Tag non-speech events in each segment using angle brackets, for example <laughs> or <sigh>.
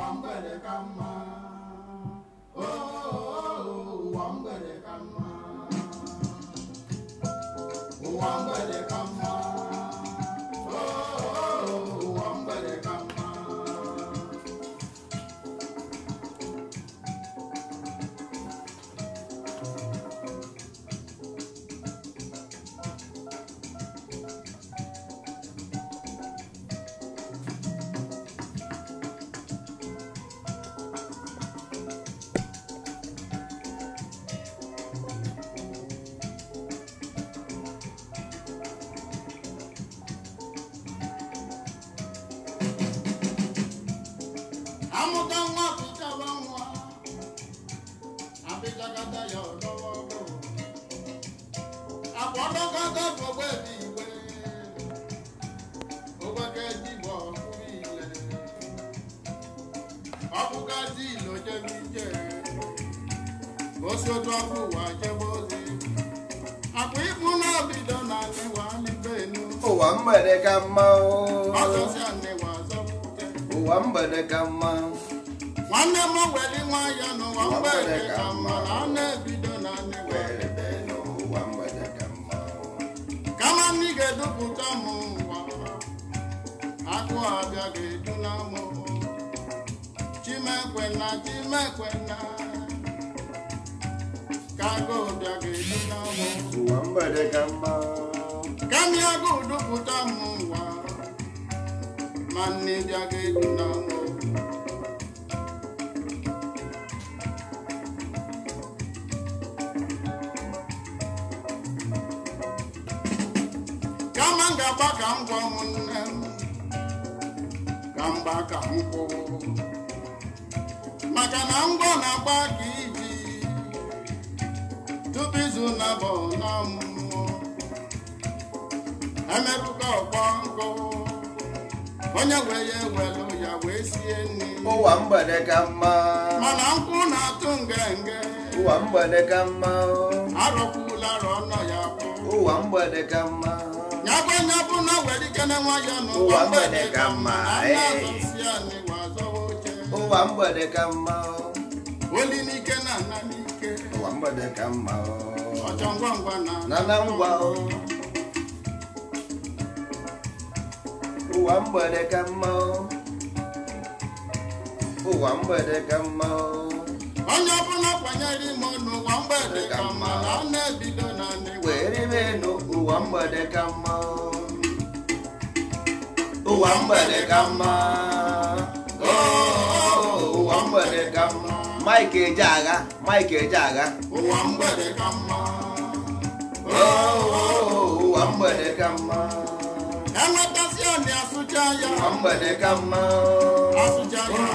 wambele kama amor. ga-agba ka m gwa ụmụnne m ka mgba ka m kwụ maka na ngwa na-agba ka iyi tupu izu na-abụ n'ọmụmụ emerụka ọkpọ nkụ onye wee ya ewelu ya wee sie nri ụwa mgbede ka mma mana nkwụ na-atụ ngenge ụwa mgbede ka mma arọkwula arọ ya bụ ụwa mgbede ka mma agwanye bụrụ na were ike na nwa ya n'ụwa mgbede ka mma eh. ụwa mgbede ka mma oh. oli n'ike na nna n'ike ụwa mgbede ka mma oh. ọchọ ngwa ngwa na na ngwa oh. ụwa mgbede ka mma ụwa mgbede ka mma onye ọbụla kwanyere ime n'ụwa mgbede ka mma na ụwa mgbede ka mma ụwa mgbede ka mma ụwa mgbede ka mma Mike eje agha Mike eje agha ụwa mgbede ka mma ụwa mgbede ka mma enwetasị ọnị asụcha ya ụwa mgbede ka mma asụcha ya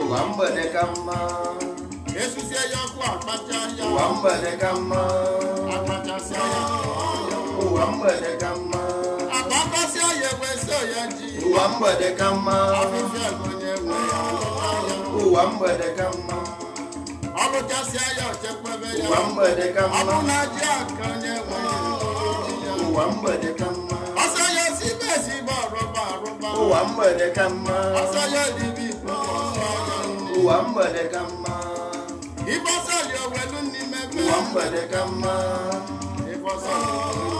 ụwa mgbede ka mma esusie ya ọkụ akpacha ya ụwa mgbede ka mma akpachasịa ya ụwa mgbede ka mma agbakọsị ọya ekwesị ọya ji ụwa mgbede ka mma onye nwe ya ụwa mgbede ka mma ọlụchasịa ya ochekwebe ya ụwa mgbede ka mma ọbụ na ji aka onye nwe ya ụwa mgbede ka mma ọsọ ya sibe esibe ọrụba arụba ụwa mgbede ka mma ọsọ ya dibe ikpe ụwa mgbede ka mma ịbọsọli owelu n'ime ụwa mgbede ka mma ya ịbọsọli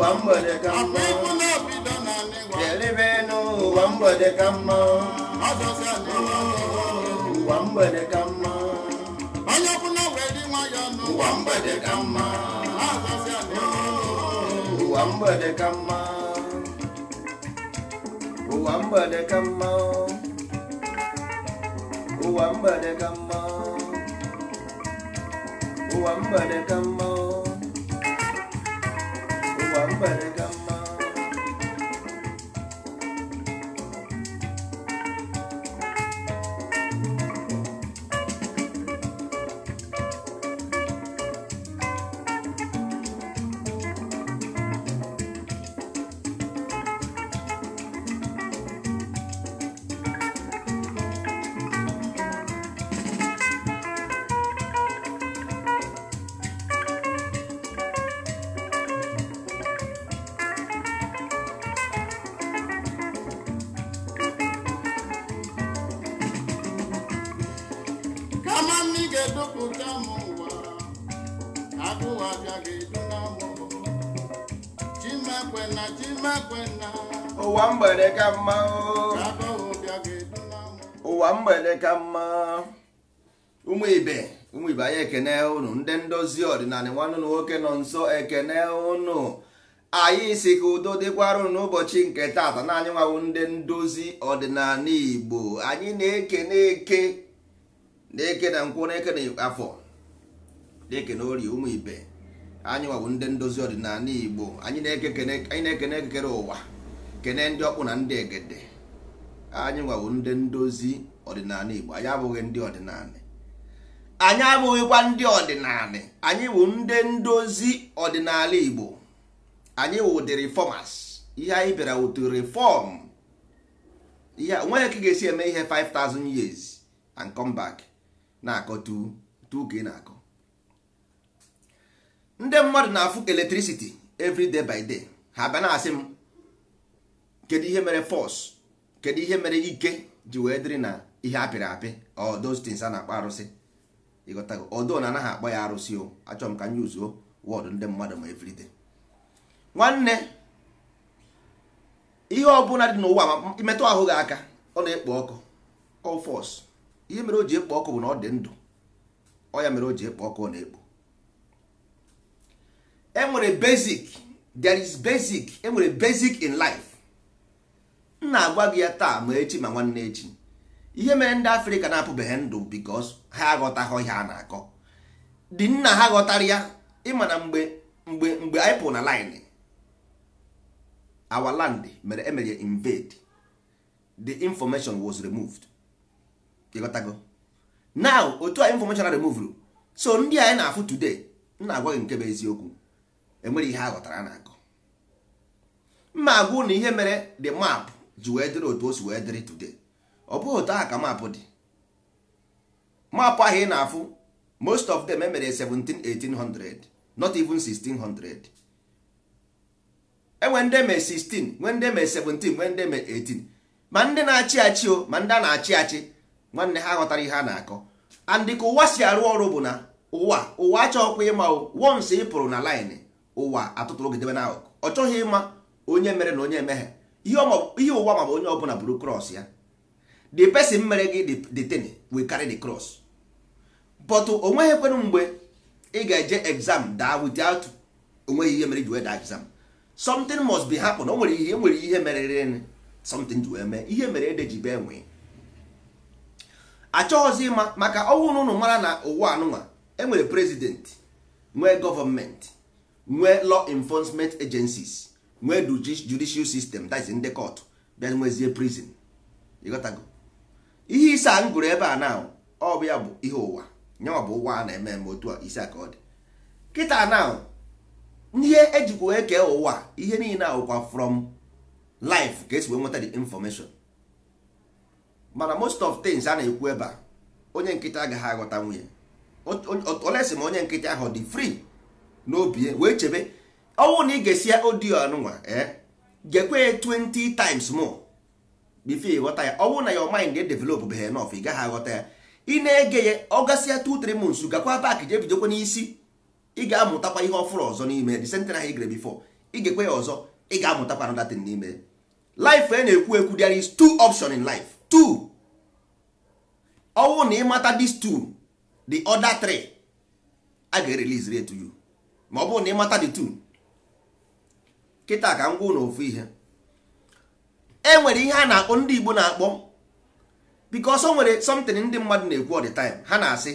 n'ụwa mgbede ka mma ga-elebe n'ụwa mgbede ka mma ụwa mgbede ka mma onye ọbụla were nwa ya n'ụwa mgbede ka mma ụwa mgbede ka mma ụwa mgbede ka mma ụwa mgbede ka mma ụwa mgbede ka mma number. ụwa mgbede ka mma ụwa mgbede ka mma ụmụ ibe ụmụ ibe anyị ekene ụnụ ndị ndozi ọdịnala nwanne na nwoke nọ nso ekene ụnụ anyị si ka udo dịkwara n'ụbọchị nke taata naanị anyị nwawo ndị ndozi ọdịnala igbo anyị na na eke na eke na nkwụ na eke na afọ na-ekene ori ụmụ ibe anyị nwa ndị ndozi ọdịnala igbo anyị na-ekene ekekere ụwa kene ndị ọkpụ na ndị egede anyị nwa ndị ndozi ọdịnala igbo anyị abụghị ndị ọdịnala anyị abụghịkwa ndị ọdịnala anyị bụ ndị ndozi ọdịnala igbo anyị bụ ụdị reformers ihe anyị bịara ụtụ reform ihe onweghị ka ga-esi eme ihe 5000 years and come back na-akọ tu tu ka ị na-akọ ndị mmadụ na-afụ electricity every day by day ha bịa na-asị m kedu ihe mere force kedu ihe mere ike ji wee dịrị na ihe apịrị apị or those a na-akpọ arụsị ịghọtago ọdụ na anaghị akpọ ya arụsị o achọ m ka m yuzuo wọdụ ndị mmadụ ma every day nwanne ihe ọbụla dị n'ụwa ma imetụ ahụ gị aka ọ na-ekpo ọkụ ọ fọs ihe mere o ji ekpo ọkụ bụ na ọ dị ndụ ọ ya mere o ji ekpo ọkụ ọ na-ekpo enwere basic there is basic enwere basic in life m na-agwa gị ya taa ma echi ma nwanne echi ihe mere ndị afrịka na-apụbeghị ndụ because ha aghọtaghị ihe a na-akọ dị nna ha ghọtara ya ịma na mgbe mgbe mgbe anyị pụrụ na line our land mere emere invade the information was removed ịghọtago now otu a information so ndị anyị na-afụ today nna na-agwa gị nke bụ eziokwu enwere ihe aghọtara ghọtara na-akọ mma agwụ na ihe mere dị map ji wee dịrị otu o si wee dịrị tude ọ bụghị otu aha ka mapụ dị mapụ ahụ ị na-afụ most of them emere 17-1800 not even 1600 enwe ndị eme 16 nwe ndị eme 17 nwe ndị eme 18 ma ndị na-achị achị o ma ndị a na-achị achị nwanne ha ghọtara ihe a na-akọ andị ka ụwa si arụ ọrụ bụ na ụwa ụwa achọghịkwa ịma o wons ị pụrụ na laịnị ụwa atụtụrụ gidebe na ọ chọghị ịma onye mere na onye emeghe ihe ụwa ma bụ onye ọbụla bụrụ cross ya the person mere gị the thing will carry the cross but o nweghị ekwenụ mgbe ị ga-eje exam daa without onweghị ihe mere ji wee daa exam something must be happen o nwere ihe e nwere ihe merere something ji wee mee ihe mere ede ji bee nwee achọghịzi ịma maka ọnwụ na ụnụ mara na ụwa anụnwa enwere president nwee gọọmenti nwee law enforcement agencies nwee judicial system that is ndị court bịa nwezie prison ịghọtago ihe ise a m gụrụ ebe a na ọ bụ ya bụ ihe ụwa nyawa bụ ụwa a na-eme eme otu a isi a ka ọ dị kịta na ihe ejikwa wee kee ụwa ihe niile awụkwa from life ka esi wee nweta the information mana most of things a na-ekwu ebe a onye nkịta agaghị aghọta nwunye olesi m onye nkịta ahụ dị free n'obi e, wee chebe ọnwụ na ị ga-esi ya odiyo anụnwa e, gekwe 20 times more before ịghọta ya ọnwụ na your mind develop beghe enough ị gaghị aghọta ya ị na-ege ya ọ gasịa 2-3 months gakwa back jee bidokwa n'isi ị ga-amụtakwa ihe ọfụrụ ọzọ n'ime the sentence ahụ ị gere ị ga ya ọzọ ị ga-amụtakwa another thing n'ime life a e na-ekwu ekwu there is two option in life two ọnwụ na ịmata these two the other three a ga-erelease to you ma ọ bụrụ na mata dị two kịta ka m gwụ na ihe e nwere ihe a na-akpọ ndị Igbo na-akpọ because o nwere something ndị mmadụ na-ekwu all ha na-asị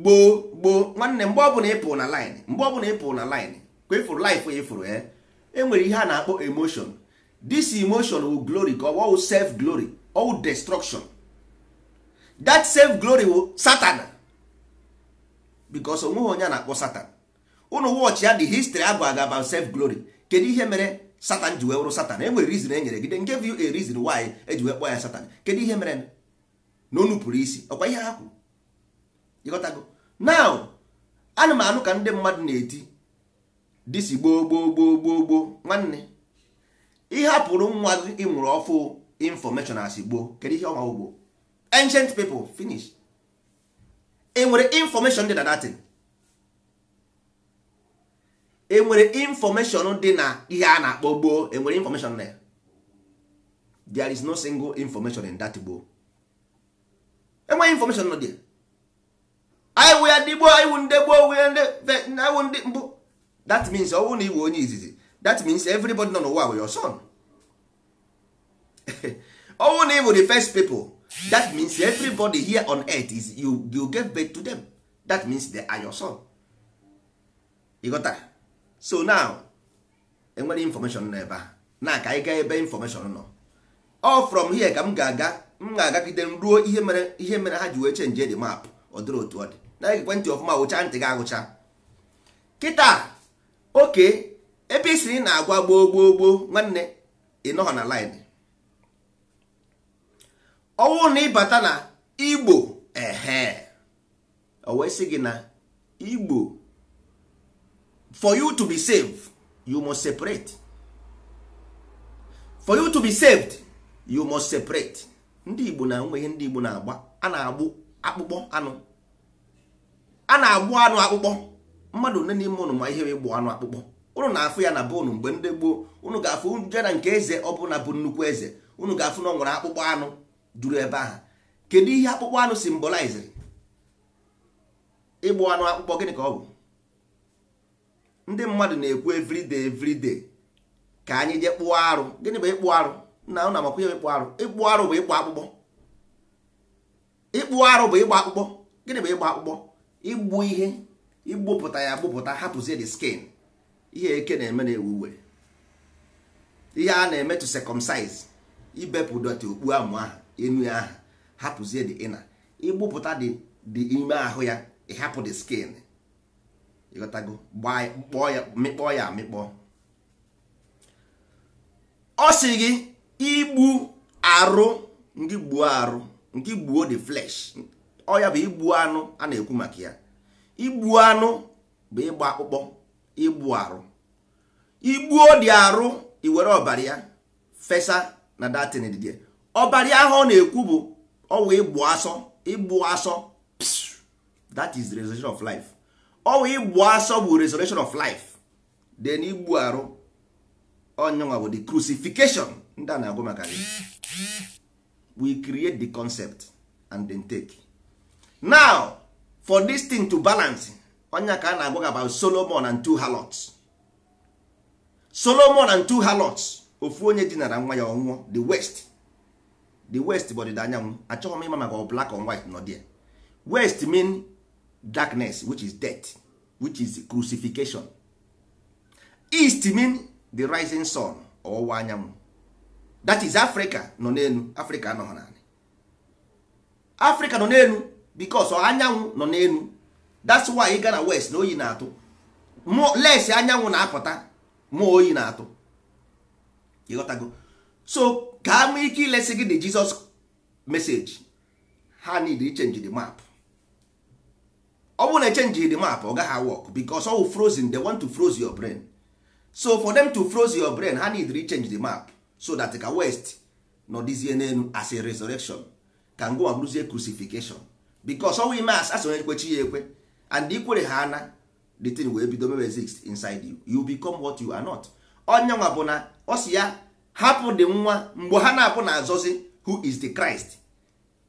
gboo gboo nwanne mgbe ọbụla ịpụ na line mgbe ọbụla ịpụ na laịnị ka ịfụrụ life ya ịfụrụ ya eh. e nwere ihe a na-akpọ emotion this emotion will glory ka ọ self glory all destruction that self glory will satan bikos onweghị onye a na-akpọ satan ụnụ wọchị ya dị histri abụ aga self glory kedu ihe mere satan ji wee wụrụ satan e nwere rizin e nyere gide nke a reason why eji wee kpọọ ya satan kedu ihe mere na onu isi ọkwa ihe ha kwuru ịghọtago now ana m anụ ka ndị mmadụ na-eti disi gboo gboo gboo gboo gboo nwanne ịhapụrụ nwa gị ịnwụrụ ọfụ infọmeshọn asị gboo kedu ihe ọnwa ugbo ancient people finish enwere information dị na datin enwere information dị na ihe a na-akpọ gboo enwere information na ya there is no single information in that gboo enweghị information nọ dị anyị wụ ya ndị gboo anyị wụ ndị gboo wụ ndị ndị mbụ that means ọ bụrụ na iwu onye izizi that means everybody nọ n'ụwa wụ your son <laughs> ọ bụrụ na ị bụ the first people that means everybody here on earth is you you give birth to them that means they are your son you got so now enwere information nọ ebe a na ka anyị gaa ebe information nọ all from here ka m ga-aga m ga-agagide m ruo ihe mere ihe mere ha ji wee chenji the map ọ dịrị otu ọ dị na ekwentị ọfụma wụcha ntị ga agụcha kịta oke ebe isiri na-agwa gboo gboo gboo nwanne ịnọghọ na line ọnwụ na ịbata na igbo ehe o gị na igbo for you to be saved you must separate for you to be saved you must separate ndị igbo na nwe ndị igbo na-agba a na-agbụ akpụkpọ anụ a na-agbụ anụ akpụkpọ mmadụ nne n'ime ụnụ ma ihe ịgbụ anụ akpụkpọ ụnụ na-afụ ya na be ụnụ mgbe ndị gboo ụnụ ga-afụ je nke eze ọ bụ na bụ nnukwu eze ụnụ ga-afụ na ọ nwere akpụkpọ anụ duru ebe ahụ kedu ihe akpụkpọ anụ simboliziri ịgbụ anụ akpụkpọ gịnị ka ọ bụ ndị mmadụ na-ekwu everyday everyday ka anyị jee kpụọ arụ gịnị bụ ịkpụ arụ na na makwa ihe ịkpụ arụ ịkpụ arụ bụ ịkpụ akpụkpọ ịkpụ arụ bụ ịgba akpụkpọ gịnị bụ ịgba akpụkpọ igbu ihe igbupụta ya gbupụta hapụzie the skin ihe eke na-eme na-ewu were ihe a na-eme to circumcise ibepụ dọtị okpu amụ ahụ enu ahụ hapụzie dị ịna igbupụta dị ime ahụ ya ịhapụ dị skin ịghọtago kpọọ ya mịkpọọ ya amịkpọ ọ sị gị igbu arụ ndị gbuo arụ nke gbuo the flesh ọ ya bụ igbu anụ a na-ekwu maka ya igbu anụ bụ ịgba akpụkpọ igbu arụ igbuo dị arụ iwere ọbara ya fesa na datin dị ọbara ahụ ọ na-ekwu bụ ọwụ ịgbụ asọ ịgbụ asọ that is the resurrection of life ọwụ ịgbụ asọ bụ resurrection of life then igbu arụ onyenwa bụ the crucifixion ndị a na-agụ maka we create the concept and then take now for this thing to balance onye ka a na-agwa about solomon and two halots solomon and two halots ofu onye dinara nwa ya ọnwụọ the west the west bụ ọdịda anyanwụ achọghị m ịma maka black and white nọ dia west mean darkness which is death which is crucifixion east mean the rising sun ọwụwa anyanwụ that is africa nọ n'elu africa anọghị naanị africa nọ n'elu because anyanwụ nọ n'elu that's why ị ga west na oyi na-atụ les anyanwụ na-apụta ma oyi na-atụ ịghọtago so ka ha nwee ike ilesi gị the Jesus message ha need change the map ọ bụrụ na echenji the map ọ gaghị work because all frozen they want to froze your brain so for them to froze your brain ha need change the map so that ka west nọdịzie n'elu as a resurrection ka ngwa bụrụzie crucifixion because we ime as asonye ekwechi ya ekwe and ikwere ha ana the thing wee bido mewe exist inside you you become what you are not onye nwa bụ na ọ si ya hapụ dị nwa mgbe ha na-apụ na-azọzi who is the Christ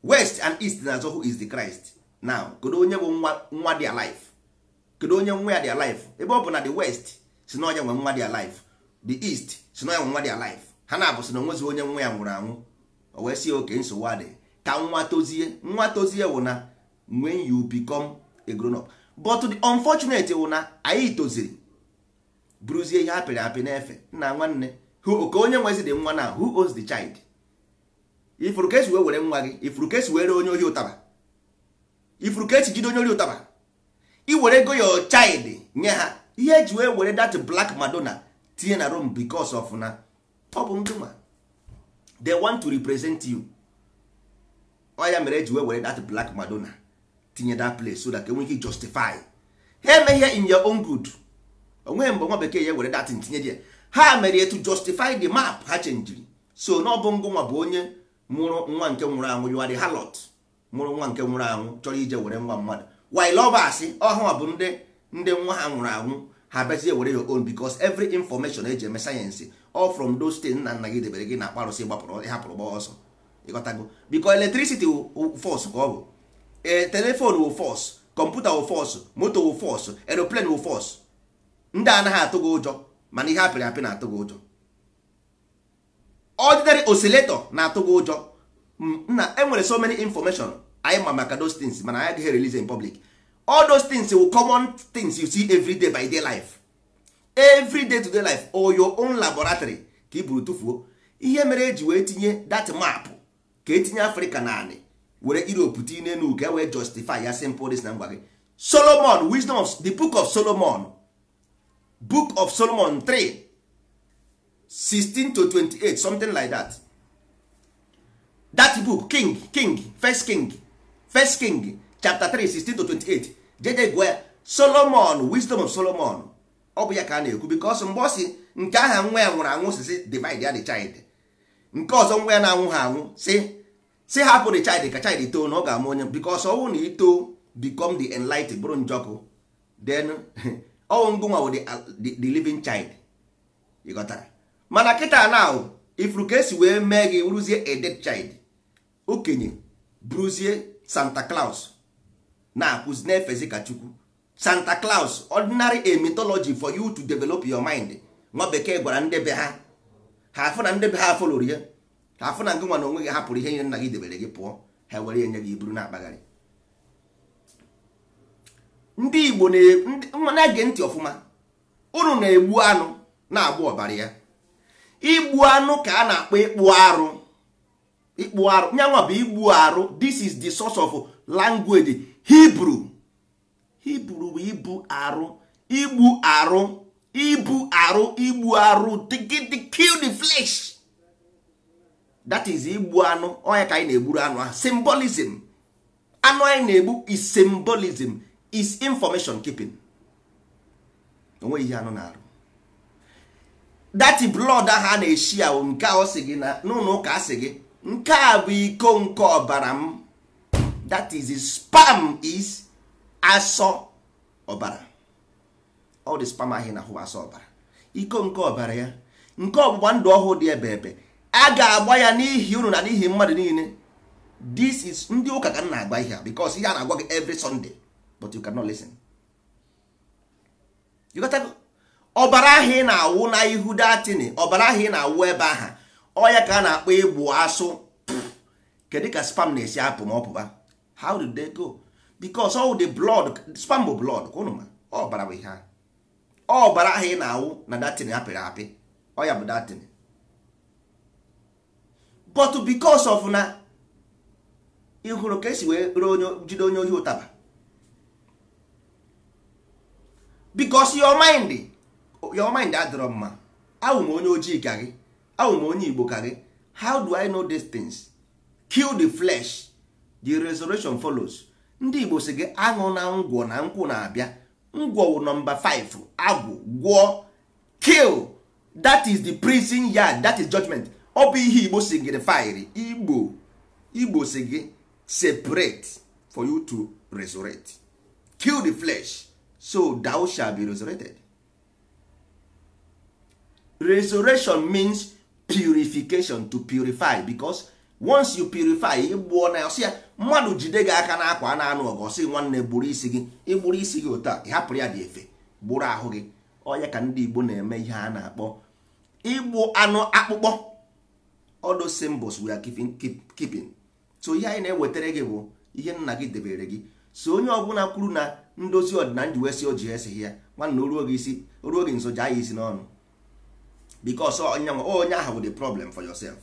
west and east na-azọ who is the Christ now kedu onye bụ nwa nwa dị alive kedu onye nwa ya dị alive ebe ọ bụ na the west si na onye nwe nwa dị alive the east si na onye nwe nwa dị alive ha na-abụ si na onwezi onye nwa ya nwụrụ anwụ o wee sie oke nsogbu adị ka nwa tozie nwa tozie wụ na when you become a ihe apịrị apị n'efe nna nwanne ka onye nwezi dị nwa na who owns the child ifuru ka esi wee were nwa gị ifuru ka esi were onye ohi ụtaba ifuru ka esi jide onye ohi ụtaba iwere ego your child nye ha ihe eji wee were that black madonna tinye na room because of na ọ bụ ndị nwa they want to represent you ọ ya mere eji wee were that black madonna tinye that place so that enwee ike justify ha emeghe in your own good onweghị mgbe nwa bekee ya were that tinye dia ha mere to justify the map ha chenjiri so n'ọbụ nwa bụ onye mụrụ nwa nke nwụrụ anwụ yuari halot mụrụ nwa nke nwụrụ anwụ chọrọ ije were nwa mmadụ while ọ basị bụ ndị ndị nwa ha nwụrụ anwụ ha bịazie were your own because every information eji eme sayensị ọ from those things nna nna gị debere gị na akparụsị gbapụrụ ịhapụrụ gba ọsọ ịghọtago biko electricity force ka ọ bụ e, telefon wụ force kọmputa wụ force moto wụ force aeroplane wụ ndị anaghị atụ gị ụjọ mana ihe apịrị apị na-atụ gị ụjọ ordinary oscillator na-atụ gị ụjọ na enwere so many information anyị ma maka those things mana anyị agaghị release in public all those things will common things you see every day by day life every day to day life or your own laboratory ka i buru tụfuo ihe mere eji wee tinye that map ka etinye afrịka naanị were europe tinye n'elu ka wee justify ya simple dis na ngwa gị solomon wisdom of the book of solomon book of solomon 3 16 to 28 something like that that book king king first king first king chapter 3 16 to 28 jede gwe solomon wisdom of solomon ọ bụ ya ka a na-ekwu because mgbe ọ si nke aha nwa ya nwụrụ anwụ si si divide ya the child nke ọzọ nwa ya na-anwụ ha anwụ si si hapụ the child ka child too na ọ ga-amụ onye because ọnwụ na ito become the enlightened bụrụ njọkụ then <laughs> ọnwụ ngụnwa wụ the living child ị mana kịta na ifuru ka esi wee mee gị bụrụzie a dead child okenye bụrụzie santa claus na-akụzi na-efezi ka chukwu santa claus ordinary a for you to develop your mind nwa bekee gwara ndebe ha ha afụ na ndebe ha afọ lụrụ ya ha afụ na Ngụnwa nwa na onwe gị hapụrụ ihe nye nna gị debere gị pụọ ha were enye gị buru na-akpagharị ndị igbo na-ege ntị ọfụma unu na-egbu anụ na-agba ọbara ya igbu anụ ka a na-akpọ ịkpụ arụ ịkpụ arụ nyanwa bụ igbu arụ this is the source of language Hebrew Hebrew bụ ibu arụ igbu arụ ibu arụ igbu arụ kill the flesh that is igbu anụ onye ka anyị na-egburu anụ ahụ symbolism anụ anyị na-egbu is symbolism is information keeping onwe ihe anụ na-arụ dati blọd ahụ a na-eshi ahụ nke a sị gị na n'ụlọ ụka asị gị nke a bụ iko nke ọbara m that is spam is asọ ọbara all the spam ahị na-ahụ asọ ọbara iko nke ọbara ya nke ọgbụgba ndụ ọhụụ dị ebe ebe a ga-agba ya n'ihi unu na n'ihi mmadụ niile this is ndị ụka ka m na-agba ihe a because ihe a na-agwa gị every Sunday but you cannot listen you got to ọbara ahụ ị na-awụ na ihu datini ọbara ahụ ị na-awụ ebe aha ọya ka a na-akpọ egbu asụ kedu ka spam na-esi apụ ma ọpụba how did they go because all the blood spam bụ blood kwụnụ ma ọbara bụ ihe ọbara ahụ ị na-awụ na datini apịrị apị ọya bụ datini but because of na ịhụrụ ka esi wee jide onye ohi ụtaba bikos your mind your mind adịrọ mma onye ojii ka gị awụ onye igbo ka gị how do i know these things kill the flesh the resurrection follows ndị igbo si gị aṅụ na ngwọ na nkwụ na-abịa ngwọ wụ nọmba 5 agwụ gwụọ kill that is the prison yard that is judgment ọ bụ ihe igbo si gị fire igbo igbo separate for you to resurrect kill the flesh so thou shall be resurrected resurrection means purification to purify because once you purify ịgbụọ na ọsị ya mmadụ jide gị aka n'akwa na-anụ ọgụ nwanne gburu isi gị ịgburu isi gị otu ịhapụrụ ya dị efe gburu ahụ gị onye ka ndị Igbo na-eme ihe a na-akpọ igbu anụ akpụkpọ all those symbols we are keeping so ihe anyị na-ewetara gị bụ ihe nna gị debere gị so onye ọbụla kwuru na ndozi ọdịnala ji wee si o ji esighị ya nwanna oruo gị isi oruo gị nso jaa ya isi n'ọnụ because onye onye ahụ bụ the problem for yourself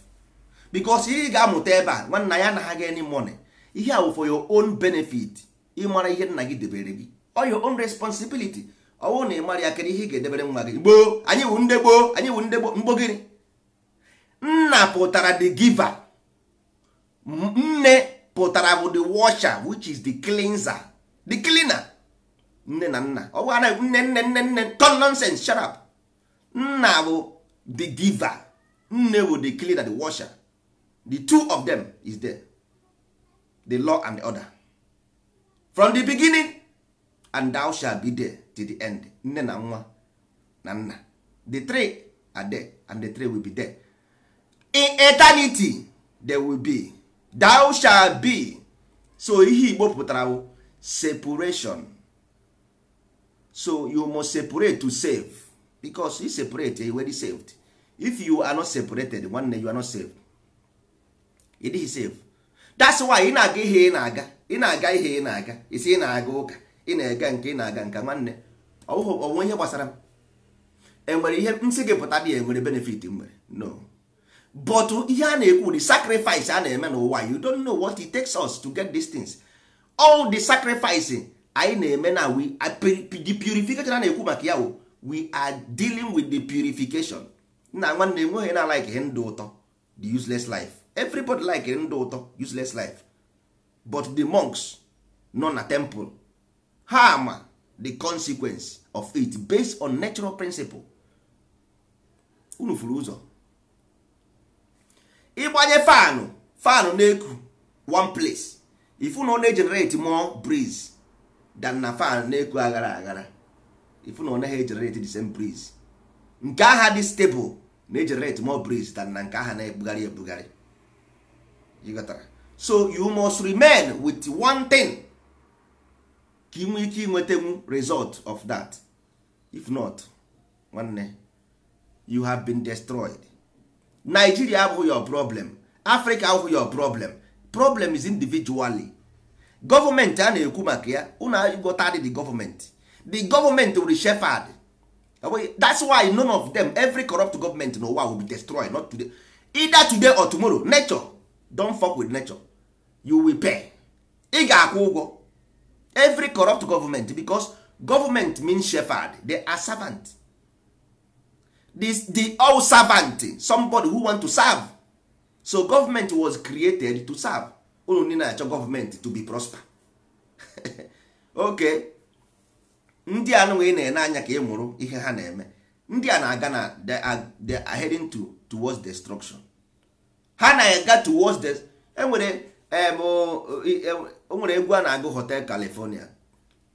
because ị ga-amụta ebe a nwanna ya anaghị any money ihe awụ for your own benefit ịmara ihe nna gị debere gị or your own responsibility ọwụ na ị mara ya kedu ihe ị ga-edebere nwa gị gboo anyị wụ ndị gboo anyị wụ ndị gboo mgbogiri nna pụtara the giver nne pụtara bụ the washer which is the cleanser the cleaner nne na nna ọ bụghị anaghị nne nne nne nne ton nonsense shut up nna bụ the giver, nne bụ the cleaner the washer the two of them is there the law and the order from the beginning and thou shall be there till the end nne na nwa na nna the three are there and the three will be there in eternity there will be thou shall be so ihe igbo pụtara separation so you must separate to save because you separate you already saved if you are not separated nwanne you are not saved ị dịghị save that's why ị na-aga ihe ị na-aga ị na-aga ihe ị na-aga isi ị na-aga ụka ị na-ega nke ị na-aga nke nwanne ọnwe ihe gbasara m enwere ihe nsị gị pụta dị ya enwere benefit nwere no but ihe a na-ekwu the sacrifice a na-eme n'ụwa you don't know what it takes us to get these things all the sacrificing anyị na-eme na we the purification a na-ekwu maka ya we are dealing with the purification nna nwanne enweghị na like ndụ ụtọ the useless life everybody like ndụ ụtọ useless life but the monks nọ na temple ha ama the consequence of it based on natural principle unu furu ụzọ ịgbanye fanụ fanụ na-eku one place if you no na-egenerate more breeze dan na fan na-eku aghara aghara ifu na ọ naghị the same breeze nke dis dị stable na generate more breeze than na nke agha na-ebugharị ebugharị so you must remain with one thing ka ị nwee ike inwetenwu result of that if not nwanne you have been destroyed Nigeria abụghị your problem Africa abụghị your problem problem is individually gọọmenti a na-ekwu maka ya unu the government. the gọọmenti were shepherd that's why none of them every corrupt government in ụwa will be destroyed not today either today or tomorrow nature don't fuck with nature you will pay ị ga-akwụ ụgwọ every corrupt government because government means shepherd they are servant this the all servant somebody who want to serve so government was created to serve unu ndị na-achọ gọọmenti to be prosper <laughs> oke ndị anụnwa ị na-ene anya ka ị e mụrụ ihe ha na-eme ndị a na-aga na they are heading to towards destruction ha na-aga towards the enwere onwere e, egwu a na-agụ hotel california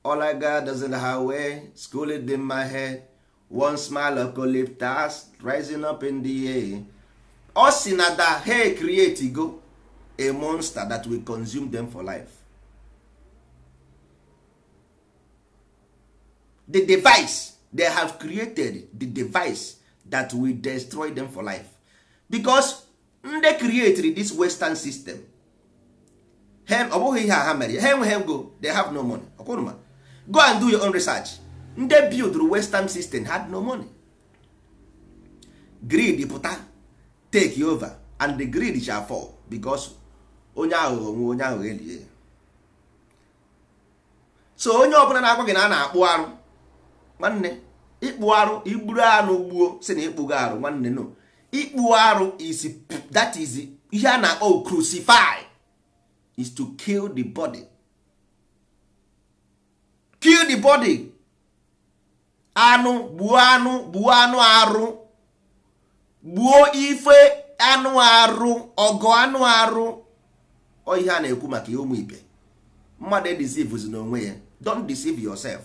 olaga I ha wee in the highway one smile ocolyptus rising up in the air ọ si na da he create go a monster that will consume them for life the device they have created the device that will destroy them for life because they created this western system ọ bụghị ihe ha mere ha enweghị they have no money ọkwụrụma go and do your own research ndị build western system had no money greed pụta take over and the greed shall fall because onye aghụghọ nwe onye aghụghọ elie so onye ọbụla na-agwa gị na a na-akpụ arụ nwanne ịkpụ arụ igburu anụ gbuo si na ịkpụgo arụ nwanne no ịkpụ arụ is that is ihe a na-akpọ crucify is to kill the body kill the body anụ gbuo anụ gbuo anụ arụ gbuo ife anụ arụ ọgụ anụ arụ ọ ihe a na-ekwu maka ụmụ ibe mmadụ edisivuzi n'onwe ya don't deceive yourself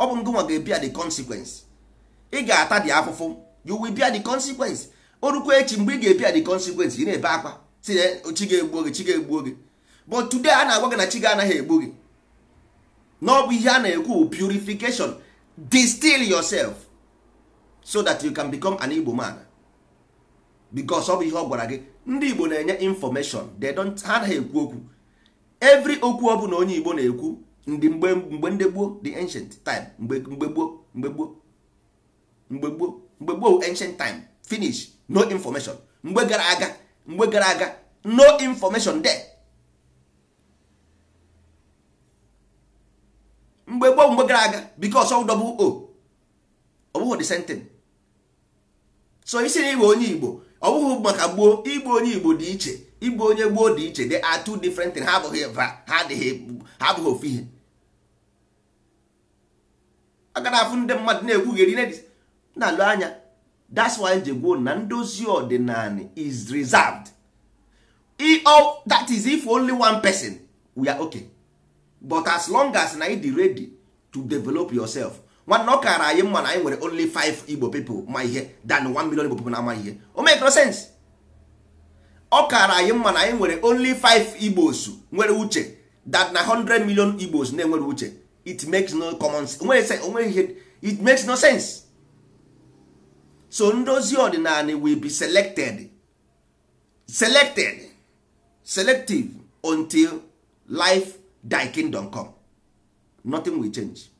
ọ bụ ngụnwa ga-ebia the consequence ị ga-ata dị afụfụ you will bia the consequence o rukwa echi mgbe ị ga-ebia the consequence ị na-ebe akwa si na chi ga-egbuo gị chi ga-egbuo gị but today a na-agwa gị na chi anaghị egbu gị na ọ bụ ihe a na-ekwu purification distil yourself so that you can become an Igbo man bikos ọ bụ ihe ọ gwara gị ndị igbo na-enye infọmeshọn they don't ha anaghị ekwu okwu every okwu ọ bụla onye igbo na-ekwu ndị mgbe mgbe ndị gboo the ancient time mgbe mgbe gboo mgbe gboo mgbe gboo mgbe gboo ancient time finish no information mgbe gara aga mgbe gara aga no information there mgbe gboo mgbe gara aga bikos ọ o ọ bụghị the same thing so isi na igbo onye igbo ọ bụghị maka gboo igbu onye igbo dị iche igbu onye gboo dị iche dị atụ different ha abụghị ha abụghị ofu ihe aga na afụ ndị mmadụ na-ekwugheri na-alụ anya that's why nje na ndozi ọdịnala is reserved that is if only one person we are okay but as long as na ị ready to develop yourself nwanne ọ kaara anyị mma na anyị nwere only 5 igbo people ma ihe than 1 million igbo people na-ama ihe o no sense ọ kaara anyị mma na anyị nwere only 5 igbos nwere uche that na 100 million igbos na-enwere uche it makes no common sense onwe ihe it makes no sense so ndozi ọdịnala will be selected selected selective until life thy kingdom come nothing will change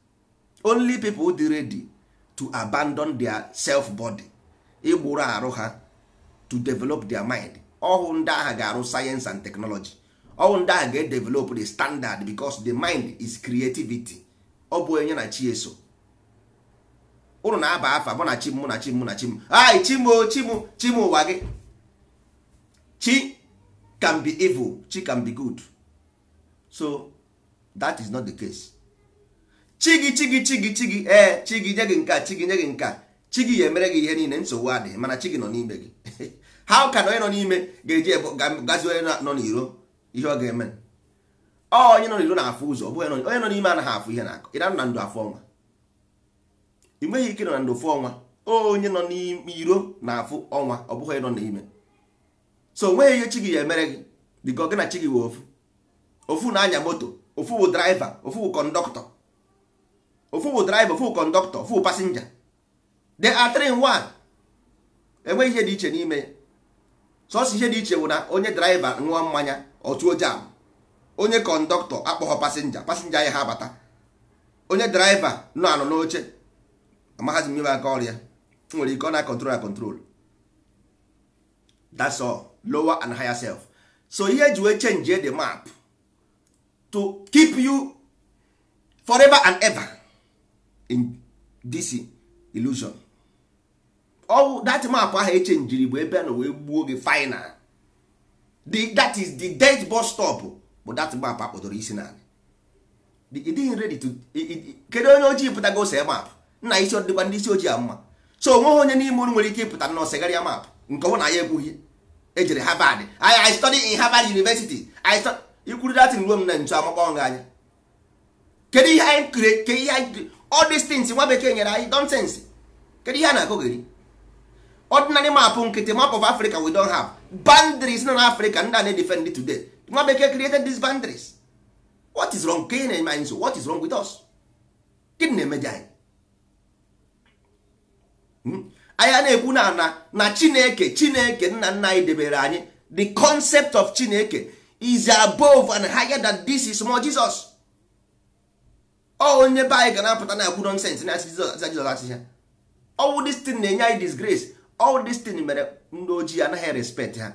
only people dị ready to abandon their self body ịgbụrụ arụ ha to develop their mind ọhụ ndị agha ga-arụ science and technology ọhụ ndị agha ga-edevelop the standard because the mind is creativity ọ bụ onye na chi eso ụnụ na-aba afa mụ na chi mụ na chi mụ na chi m ai chimo chimo chimo ụwa gị chi can be evil chi can be good so that is not the case chigi chigi chigi chigi ee eh, chigi nye gị nka chigi nye gị nka chigi ya emere gị ihe niile nsogbu adịghị mana chigi nọ n'ime gị <laughs> ha ka na onye nọ n'ime ga-eji gazi onye nọ n'iro ihe ọ ga-eme ọ onye nọ n'iro na-afụ ụzọ ọ bụ onye nọ n'ime anaghị afụ ihe na-akọ ịda na ndụ afọ ọnwa ị nweghị ike nọ na ndụ afọ ọnwa onye nọ n'iro na-afụ ọnwa ọ bụghị nọ n'ime so onweghị ihe chigi ya emere gị dịka ọ gị na chigi wee ofu ofu na-anya moto ofu bụ draiva ofu bụ kọndọktọ ofu bụ driver ofu kọndọktọ ofu pasenja the are enweghị ihe dị iche n'ime sos ihe dị iche bụ na onye driver ṅụọ mmanya ọtụo jam onye kọndọktọ akpọghọ pasenja pasenja ya ha abata onye driver nọ anọ n'oche amaghazi m aka ọrịa nwere ike ọ na control control that's all lower and higher self so ihe ji wee change the map to keep you forever and ever in this illusion ọwụ that map ahụ eche njiri bụ ebe a na wee gbuo gị final the that is the dead bus stop bụ that map akpọdoro isi na ịdịghị ready to kedu onye ojii pụtago ose map nna isi ọdịkwa ndị isi ojii a mma so onweghị onye n'ime unu nwere ike ịpụta na ọsegharịa map nke ọbụ na ya ekwughị ejere Harvard I study in Harvard University I ikwuru datin ruo m na ntu amakpọnwụ anya kedu ihe anyị all these things nwa bekee nyere anyị nonsense kedu ihe a na-akụ ordinary map nkịtị map of africa we don't have boundaries nọ Africa, ndị a na-edefend today nwa bekee created these boundaries what is wrong kenye na-eme anyị what is wrong with us gịnị na-emeje hmm? anyị anyị na-ekwu na na na chineke chineke nna nna anyị debere anyị the concept of chineke is above and higher than this Is small jesus ọ onye be anyị ga na-apụta na agbu nonsens na aza jizọs achịcha ọwụ destin na-enye anyị disgrace ọwụ destin mere ndị ojii anaghị respect ha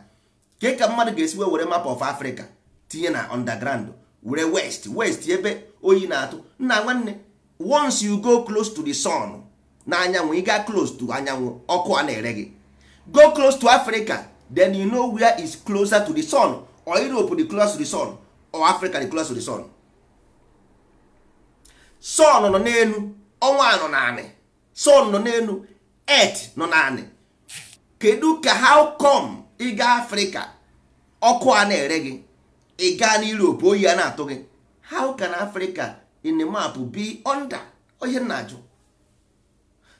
ke ka mmadụ ga esiwe were map of africa tinye na underground were west west ebe oyi na-atụ nna nwanne once you go close to the sun na anyanwụ ị gaa close to anyanwụ ọkụ a na-ere gị go close to africa then you know where is closer to the sun or europe the close to the sun or africa the close to the sun sun nọ n'elu ọnwa nọ naanị sun nọ n'elu earth nọ naanị kedu ka how come ịga afrịka ọkụ a na-ere gị ị gaa n'europe oyi a na-atụ gị how can africa in the map be under ohe na-ajụ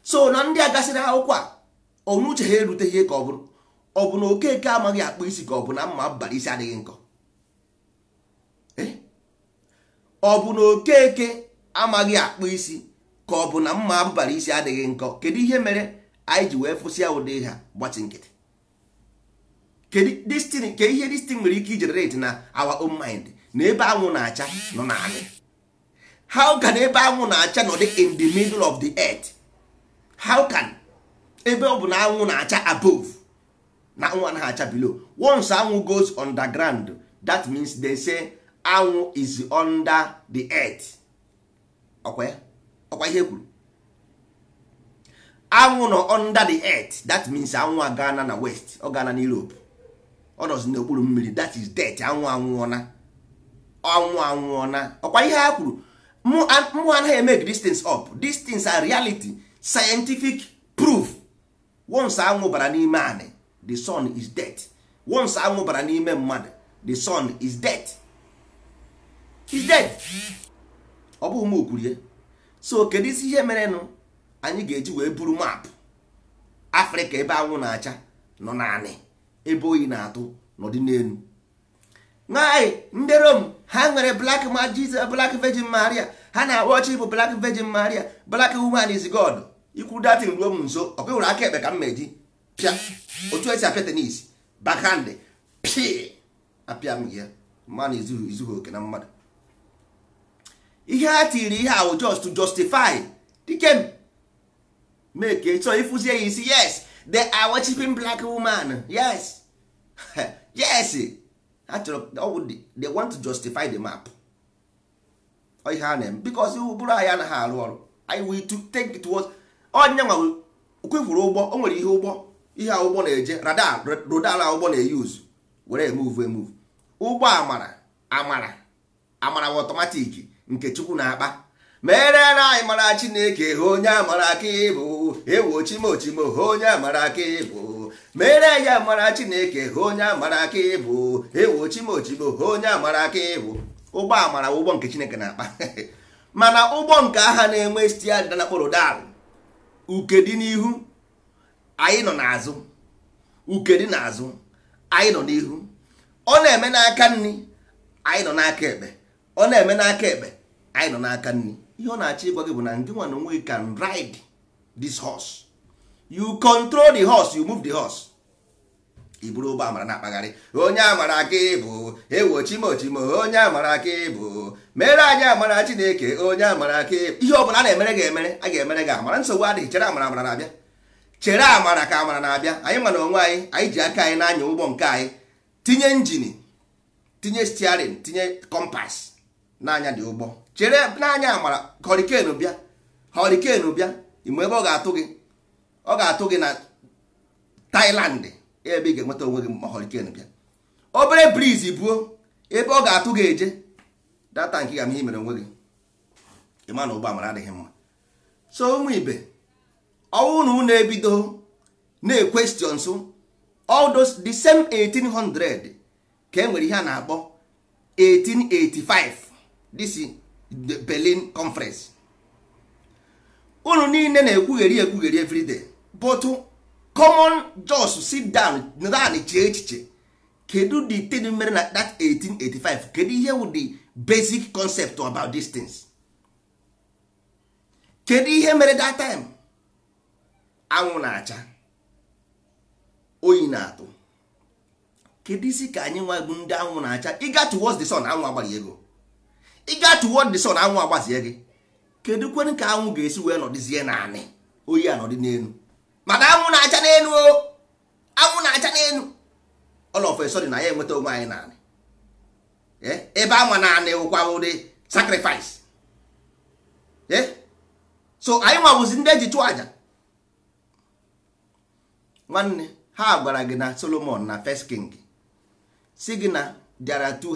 so na ndị a gasịrị akwụkwọ a ọnụuche ha eruteghị ka ọ bụrụ ọ bụ na okeke amaghị akpụ isi ka ọ bụ na mma abalị isi adịghị nkọ eh? ọ bụ na okeke amaghị akpụ isi ka ọ bụ na mma abụbara isi adịghị nkọ kedu ihe mere anyị ji wee fụsịa ụdị ha gbatị nkịtị ke ihe destin nwere ike ijenerate na awa own mind na ebe anwụ na-acha nọ na naanị how can ebe anwụ na-acha nọ dị in the middle of the earth how can ebe ọ bụ na anwụ na-acha above na nwa na-acha below once anwụ goes underground that means they say anwụ is under the earth ọkwa ya ọkwa ihe kwuru anwụ nọ under the earth that means anwụ agana na west ọ na europe ọ nọzi n'okpuru mmiri that is death anwụ anwụọna anwụ anwụọna ọkwa ihe ha kwuru mụ anaghị emeg these things up these are reality scientific proof once anwụ bara n'ime anị the sun is death once anwụ bara n'ime mmadụ the sun is death is death ọ bụghị m so kedu isi ihe mere nụ anyị ga-eji wee buru maapụ afrịka ebe anwụ na-acha nọ naanị ebe oyi na-atụ n'ọdịnelu n'elu nwaanyị ndị rom ha nwere black majis black virgin maria ha na-arụ ọchị ịbụ black virgin maria black woman is god ikwu datin ruo m nso ọ kpewere aka ekpe ka m meji pịa otu esi apịa tenis bakhandị pịa apịa m ya mmanụ izughị oke na mmadụ ihe ha tiri ihe ahụ just to justify dike make so ịfụzie ya isi yes the are black woman yes <laughs> yes ha chọrọ they want to justify the map ihe ha na-eme bikos ụbụrụ anyị anaghị arụ ọrụ anyị we to take towards onye nwa kwefuru ụgbọ o nwere ihe ụgbọ ihe ụgbọ na-eje radar rodal ụgbọ na-eyuzu were emove emove ụgbọ amara amara amara bụ otomatik. nke chukwu na-akpa mere na anyị mara chineke ha onye amara aka ịbụ ewo chimochimo ha onye amara aka ịbụ mere ya mara chineke ha onye amara aka ịbụ ewo chimochimo ha onye amara aka ịbụ ụgbọ amara ụgbọ nke chineke na-akpa <laughs> mana ụgbọ nke agha na-enwe stiadịda na kpọrọ dal uke dị n'ihu anyị nọ n'azụ uke dị n'azụ anyị nọ n'ihu ọ na-eme n'aka nri anyị nọ n'aka ekpe ọ na-eme n'aka ekpe anyị nọ n'aka nri ihe ọ na-achọ ịgwa gị bụ na ndị nwa na onwe can ride this horse you control the horse you move the horse iburu ụgbọ amara na-akpagharị onye amara aka ịbụ ewo chimochimo onye amara aka ịbụ mere anyị amara chineke onye amara aka ịbụ ihe ọbụla a na-emere gị emere a ga-emere gị amara nsogbu adịghị chere amara amara na-abịa chere amara ka amara na-abịa anyị mana na onwe anyị anyị ji aka anyị n'anya ụgbọ nke anyị tinye injin tinye stiarin tinye kọmpas na dị ụgbọ chere n'anya amara ka bịa họrịken bịa ime ebe ọ ga-atụ gị ọ ga-atụ gị na Thailand ebe ị ga-enweta onwe gị ma họrịken bịa obere briz buo ebe ọ ga-atụ gị eje data nke ga ihe mere onwe gị ịma na ụgbọ amara adịghị mma so ụmụ ibe ọnwụ na ebido na-ekwestions all those the same 1800 ka e nwere ihe a na-akpọ 1885 dc the Berlin conference unu niile na-ekwugheri ekwugheri everyday but common jos sit down naanị chee echiche kedu the thing mere na that 1885 kedu ihe wu the basic concept about these things kedu ihe mere that time anwụ na-acha oyi na-atụ kedu isi ka anyị nwa bụ ndị anwụ na-acha ịga towards the sun anwụ agbaghị ego ị gaa tuwo the na anwụ agbazie gị kedu kwenu ka anwụ ga-esi wee nọdịzie naanị oyi anọdị n'elu mana anwụ na-acha n'elu o anwụ na-acha n'elu ọlọfesọ dị na ya enweta onwe anyị naanị e, ebe ama naanị wụkwa ụdị sacrifice e, so anyị nwabụzi ndị eji chụọ aja nwanne ha gwara gị na solomon na first king si gị na there are two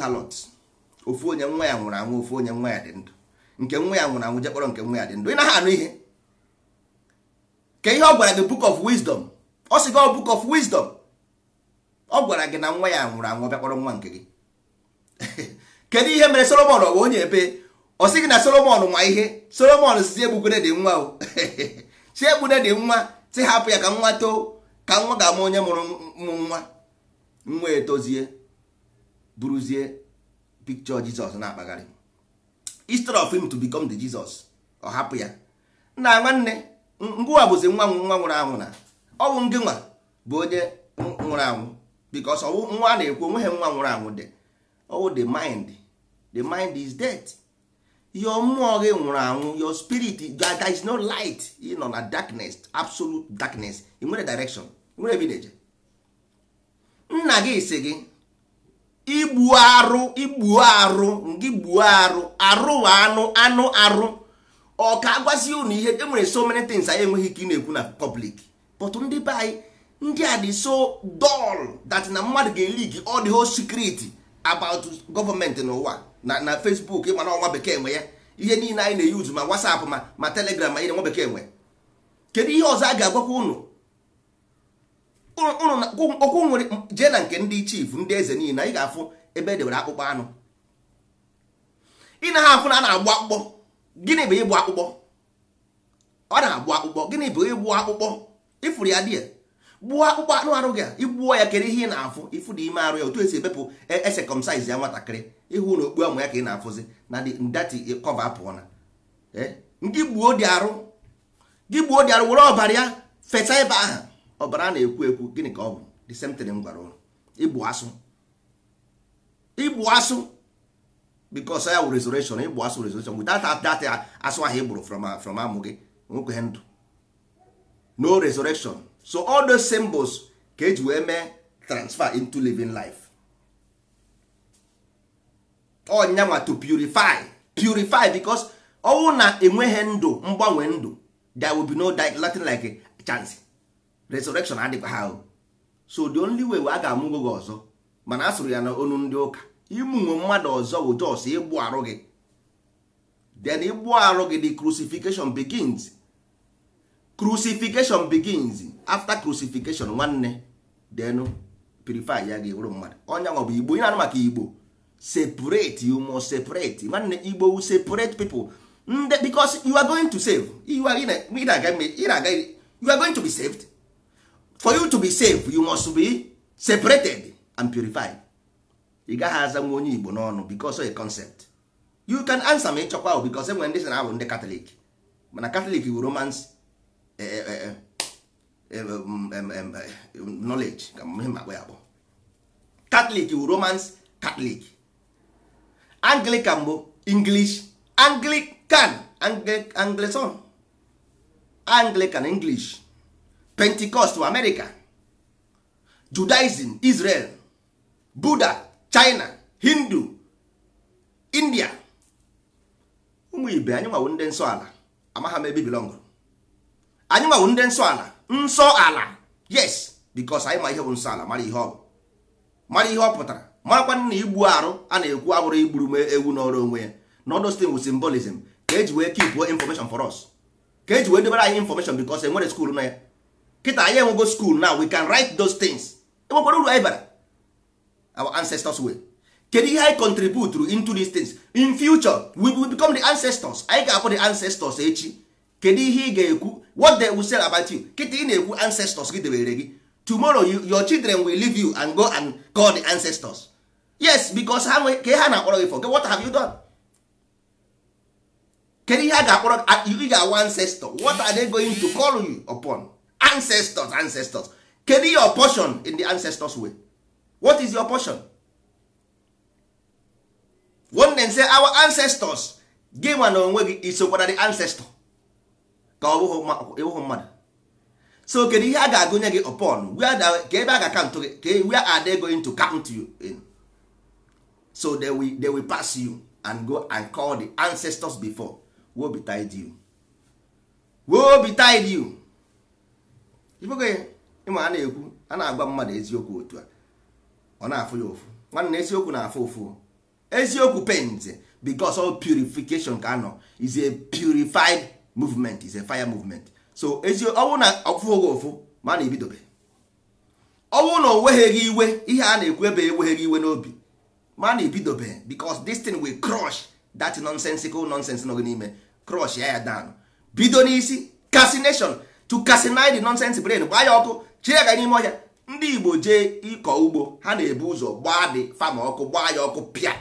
ofu onye nwa ya nwụrụ anwụ ofu onye nwa ya dị ndụ nke nwa ya nwụrụ anwụ jekpọrọ nke nwa ya dị ndụ ị naghị anụ ihe ka ihe ọ gwara gị book of wisdom ọ sị gị oh, book of wisdom ọ gwara gị na nwa ya nwụrụ anwụ bịakpọrọ nwa nke gị <laughs> kedu ihe mere solomon ọwa onye ebe ọ sị gị na solomon nwa ihe solomon si egbugone dị nwa o si <laughs> egbune dị nwa si hapụ ya ka nwa too ka nwa ga-ama onye mụrụ mụ nwa nwa etozie buruzie. picture jizọs na-akpagharị instead of him to become the jesus ọ hapụ ya nna nwanne ngụwa bụzi nwa nwa nwụrụ anwụ na ọ bụ ngị nwa bụ onye nwụrụ anwụ because ọwụ nwa a na-ekwu onweghị nwa nwụrụ anwụ dị ọwụ the mind the mind is dead your mmụọ gị nwụrụ anwụ your spirit there is no light ị nọ na darkness absolute darkness ị nwere direction nwere ebideje nna gị gị igbu arụ igbuo arụ gị gbuo arụ arụ anụ anụ arụ ọ ka agwazi unu ihe e nwere so many things anyị enweghị ike ị na-ekwu na pọblik but ndị be anyị ndị a dị so dull that na mmadụ ga-eli gị ọ the whole secret about n'ụwa na na Facebook ịma na ọnwa bekee nwe ya ihe niile anyị na-eyuzu ma WhatsApp ma ma telegram ma ihe nwa bekee nwe kedu ihe ọzọ a ga-agwakwa unu okwu nwere jee na nke ndị chief ndị eze niile ị ga-afụ ebe edewere akpụkpọ anụ ị na ha afụ na a na-agbụ akpụkpọ gịnị bụ ịgbụ akpụkpọ ọ na-agbụ akpụkpọ gịnị bụ ịgbụ akpụkpọ ịfụrụ ya di ya gbuo akpụkpọ anụ arụ gị igbuo ya kere ihe ị na-afụ ịfụ dị ime arụ ya otu esi ebepụ esekọmsaiz e ya nwatakịrị ịhụ na okpu amụ ya ka ị na-afụzi na ndati kọva apụọ na eh? gị gbuo dị arụ were ọbara ya fesa ebe ahụ ọbara a na-ekwu ekwu gịnị ka ọ bụ the same thing m gwara ụlọ igbu asụ asụ because ya wụ resurrection igbu asụ resurrection without that asụ ahụ igburu from from amụ gị nwekwe ndụ no resurrection so all those symbols ka eji wee mee transfer into living life ọnyanwa to purify purify because ọnwụ na enweghị ndụ mgbanwe ndụ there will be no latin like a chance resurrection adịkwa ha so the only way a ga-amụgo gị ọzọ mana a sụrụ ya na onu ndị ụka ịmụnwe mmadụ ọzọ bụ jos ịgbụ arụ gị then ịgbụ arụ gị the crucifixion begins crucifixion begins after crucifixion nwanne then purify ya mmadụ ọnya nwa bụ igbo ị na-anụ maka igbo separate you must separate nwanne igbo separate people ndị you are going to save you are, you are going to be saved for you to be safe you must be separated and purified ị gaghị aza nwa onye igbo n'ọnụ a concept you can answer me chokwa ahụ bicos enwere ndị sị na abụ ndị katọlik mana katọlik bụ romans knowledge ka ihe makpọ ya akpọ katọlik bụ romans katọlik anglican bụ english anglican anglican english pentecost america judaism israel buddha china hindu india ụmụ ibe anyị nwawo ndị nsọ ala amagha m ebe bilọngụrụ anyị nwawo ndị nsọ ala nsọ ala yes bikos anyị ma ihe bụ nsọ ala mara ihe ọ bụ mara ihe ọ pụtara marakwa na igbu arụ a na-ekwu abụrụ igburu m ewu n'ọrụ onwe ya na odostin wu symbolism ka eji wee keep information for us ka eji wee debere anyị information bikos enwere skuul na ya kịta anyị enwego school now we can write those things enwekwara uru anyị bara our ancestors way kedu ihe anyị contribute into these things in future we will become the ancestors anyị ga-akpọ the ancestors echi eh, kedu ihe ị ga-ekwu what they will say about you kịta ị na-ekwu ancestors gị debere gị tomorrow your children will leave you and go and call the ancestors yes because ha nwe ha na-akpọrọ gị for what have you done kedu ihe a ga-akpọrọ ị ga-awa ancestor what are they going to call you upon ancestors ancestors kedu your portion in the ancestors way what is your portion nwanne nse our ancestors gị nwa na onwe gị isokwara the ancestor ka ọ bụghị mmadụ so kedu ihe a ga-agụnye gị upon ka ebe a ga-akantụ gị ka where are they going to count you in so they will, they will pass you and go and call the ancestors before woe tied you be tied you ibegoghị ịma a na-ekwu a na-agwa mmadụ eziokwu otu a ọ na-afụ ya ụfụ nwanne eziokwu na-afụ ụfụ eziokwu paint because all purification ka anọ is a purified movement is a fire movement so ọwụ na ọfụghị ụfụ ma na ebidobe ọwụ na onweghị iwe ihe a na-ekwu ebe enweghị iwe n'obi ma na ebidobe because this thing will crush that nonsensical nonsense nọ gị n'ime crush ya ya down bido n'isi casination chụkasịna dị nọnsensị brain gbaa ya ọkụ chie ya n'ime ọhịa ndị igbo jee ịkọ ugbo ha na-ebu ụzọ gbaa dị fama ọkụ gbaa ya ọkụ pịa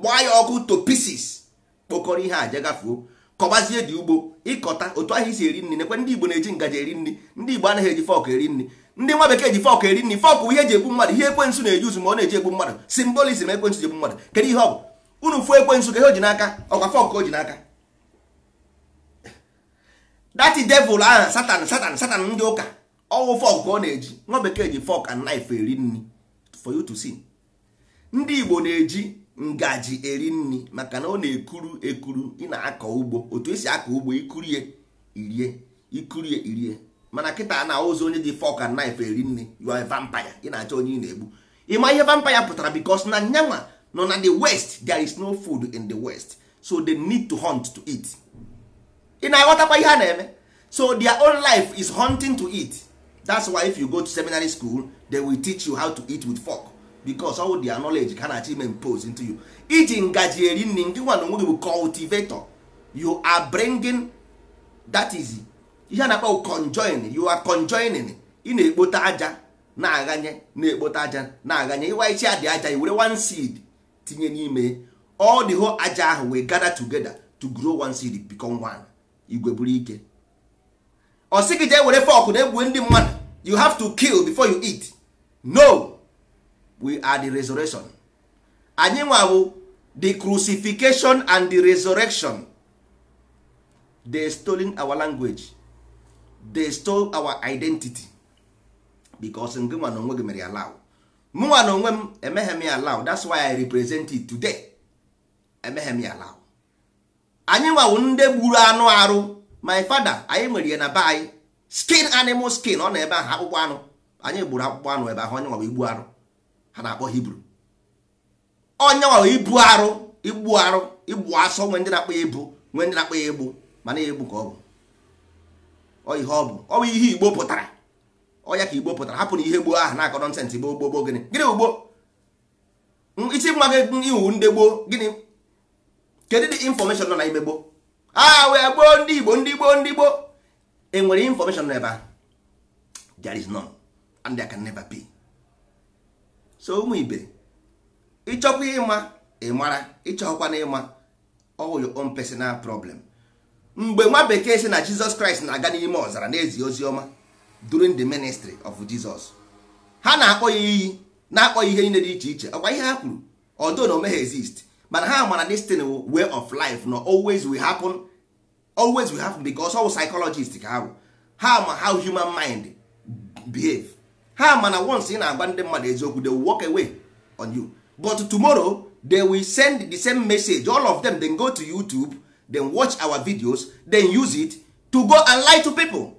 gbaa ya ọkụ to pieces kpokọrọ ihe a jegafuo kọbazie dị ugbo ịkọta otu ahụ isi eri nri nekwe ndị igbo na-eji ngaji eri nri ndị igbo anaghị eji fọkụ eri nri ndị nwa bekee ji fọkụ eri nri fọkụ ihe eji egbu mmadụ ihe ekwensu na-eji uzu ma ọ na-eji egbu mmadụ simbolizm ekwensu ji egbu mmadụ kedu ihe ọ bụ unu fuo ekwensu ka ihe o ji n'aka ọkwa fọkụ o ji n'aka dati devil ahụ satan satan satan ndị ụka ọwụ fọk ka ọ na-eji nwa bekee ji fọk and knife eri nri for you to see ndị igbo na-eji ngaji eri nri maka na ọ na-ekuru ekuru ị na-akọ ugbo otu esi akọ ugbo ikurie irie ikurie irie mana kịta na ụzọ onye ji fọk and knife eri nri you are a ị na-achọ onye ị na-egbu ịma ihe vampire pụtara bikos na nyanwa nọ na the west there is no food in the west so they need to hunt to eat ị na-aghọtakwa ihe a na-eme so their own life is hunting to eat that's why if you go to seminary school they will teach you how to eat with fork because all their knowledge ka na-achọ impose into you iji ngaji eri nri nke nwa na onwe gị bụ cultivator you are bringing that is ihe a na-akpọ conjoin you are conjoining ị na-ekpote aja na-aghanye na-ekpote aja na-aghanye ịwaichi adị aja i were one seed tinye n'ime all the whole aja ahụ we gather together to grow one seed become one igwe buru ike ọ gị jee were fọkụ na egbuo ndị mmadụ you have to kill before you eat no we are the resurrection anyị nwa bụ the crucifixion and the resurrection they stolen our language they stole our identity because in nwa na onwe gị mere ya mụnwa na onwe m emeghe m ya that's why i represent it today emeghe m ya law anyị nwawu ndị gburu anụ arụ my fada anyị nwere ya na be anyị skin animal skin ọ nọ ebe ahụ akpụkpọ anụ anyị gburu akpụkpọ anụ ebe ahụ onye nwawa igbu arụ ha na-akpọ hibru onye nwawa ibu arụ igbu arụ igbu asọ nwee ndị na-akpọ ya ibu nwee ndị na-akpọ ya egbu mana egbu ka ọ bụ ihe ọ bụ ọ bụ ihe igbo pụtara ọya ka igbo pụtara hapụ na ihe gboo ahụ na-akọ nọnsensị gboo gboo gboo gịnị gịnị ugbo isi nwa gị iwu ndị gboo gịnị kedu dị infọmeshọn nọ na ime gboo a ah, wee gboo ndị igbo ndị gboo ndị gboo enwere infọmeshọn n'ebe ahụ there is none and can never be so ụmụ ibe ịchọkwa ịma ịmara ịchọkwa na ịma all your own personal problem mgbe nwa bekee si na jizọs kraịst na-aga n'ime ọzara n'ezi ezi ozi ọma during the ministry of jesus ha na-akpọ ya iyi na-akpọ ya ihe niile dị iche iche ọkwa ihe ha kwuru ọdụ na o ha exist mana ha mara this thing way of life no always will happen always will happen because how psychologist ka ha bụ ha ma how human mind behave ha mana once ị na-agba ndị mmadụ eziokwu they will walk away on you but tomorrow they will send the same message all of them then go to youtube then watch our videos then use it to go and lie to people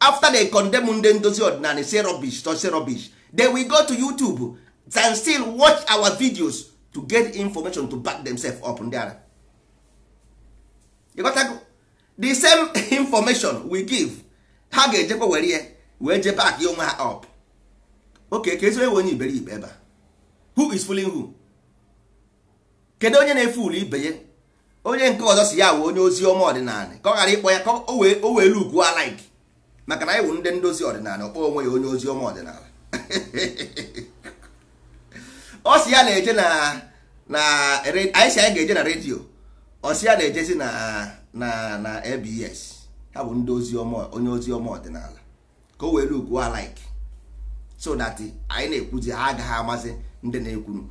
after they condemn ndị ndozi ọdịnala say rubbish to say rubbish they will go to youtube and still watch our videos to get information to back themselves up ndị ara the same <laughs> information we give ha ga-ejekwa were ya wee je back ya onwe ha up okay ka onye iberibe ebe who is fooling who kedu onye na-efulu ibe ya onye nke ọzọ si ya wee onye ozi ọma ọdịnala ka ọ ghara ịkpọ ya ka o wee lukuo alike maka na anyị wụ ndị ndozi ọdịnala ọkpọ onwe ya onye ozi ọma ọdịnala <laughs> ọ sị ya na-eje na na anyị si anyị ga-eje na redio ọ sị ya na-ejezi na na na abs ha bụ ndị ozi ọma onye ozi ọma ọdịnala ka o were ugwu alaik so that anyị na-ekwuzi ha agaghị amazi ndị na-ekwuru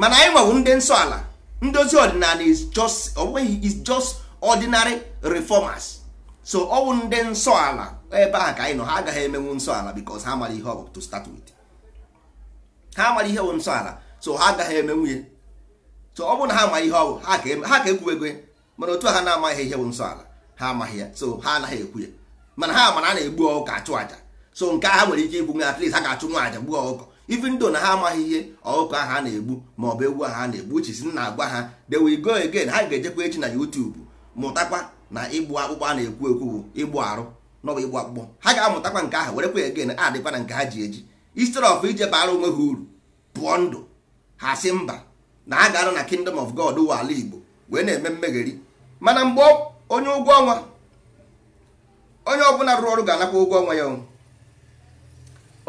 mana anyị nwebụ ndị nsọ ala ndị ozi ọdịnala is just onweghị is just ordinary reformers so ọwụ ndị nsọ ala ebe ahụ ka anyị nọ ha agaghị emenwu nsọ ala because ha mara ihe ọ bụ to start with ha mara ihe bụ nsọ ala so ha agaghị eme nwunye so ọ bụrụ na ha amaghị ihe ọ bụ ha ka ekwuwego ya mana otu a ha na-amaghị ihe bụ nsọ ala ha amaghị ya so ha anaghị ekwu ya mana ha mara a na-egbu ọkụkọ achụ aja so nke ha nwere ike ikwu nwe at ha ga-achụ nwa aja gbuo ọkụkọ even ndo na ha amaghị ihe ọkụkọ ahụ a na-egbu ma ọ bụ egwu ahụ a na-egbu uche si na-agwa ha they will go again ha ga-ejekwa echi na YouTube mụtakwa na ịgbụ akpụkpọ a na-ekwu ekwu bụ ịgbụ arụ n'ọbụ ịgbụ akpụkpọ ha ga-amụtakwa nke ahụ werekwa again adịkwa na nke ha ji eji istr of ije bara onwe ha uru pụọ ndụ ha si mba na a ga-anọ na kingdom of god ụwa ala igbo wee na-eme mmegheri mana mgbe onye ụgwọ ọnwa onye ọbụla rụrụ ọrụ ga-anakwa ụgwọ ọnwa ya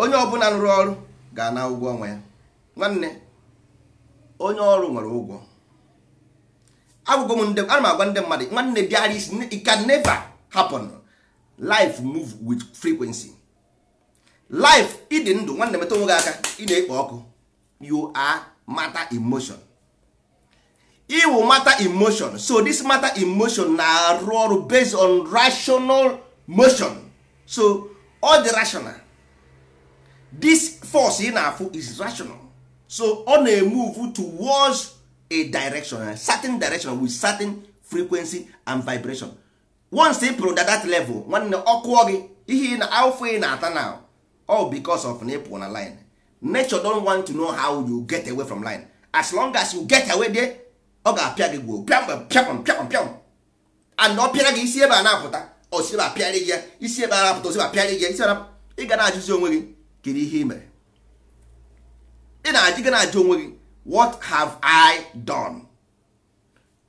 onye ọbụla rụrụ ọrụ ga-ana ụgwọ ọnwa ya nwanne onye ọrụ nwere ụgwọ agwụgwọ m ndị ana m agwa ndị mmadụ nwanne bịara isi it can never happen life move with frequency life ịdị ndụ nwanne metụ nwoke aka ị na-ekpo ọkụ you are matter emotion iwu matter emotion so this matter emotion na-arụ ọrụ based on rational motion so all the rational this force ị na-afụ is rational so ọ na-emove towards a direction a certain direction with certain frequency and vibration once ị pụrụ that level nwanne ọkụọ gị ihe na afọ ị na-ata now. all because of na ịpụ na line nature don want to know how you get away from line as long as you get away there ọ ga-apịa gị gwuo pịam pịam pịam pịam and ọ pịara gị isi ebe a na-apụta ọ osiba apịarị gị isi ebe a na-apụta osiba apịarị gị isi ị ga na-ajụzi onwe gị kedu ihe ị mere ị na-ajụ gị na-ajụ onwe gị what have I done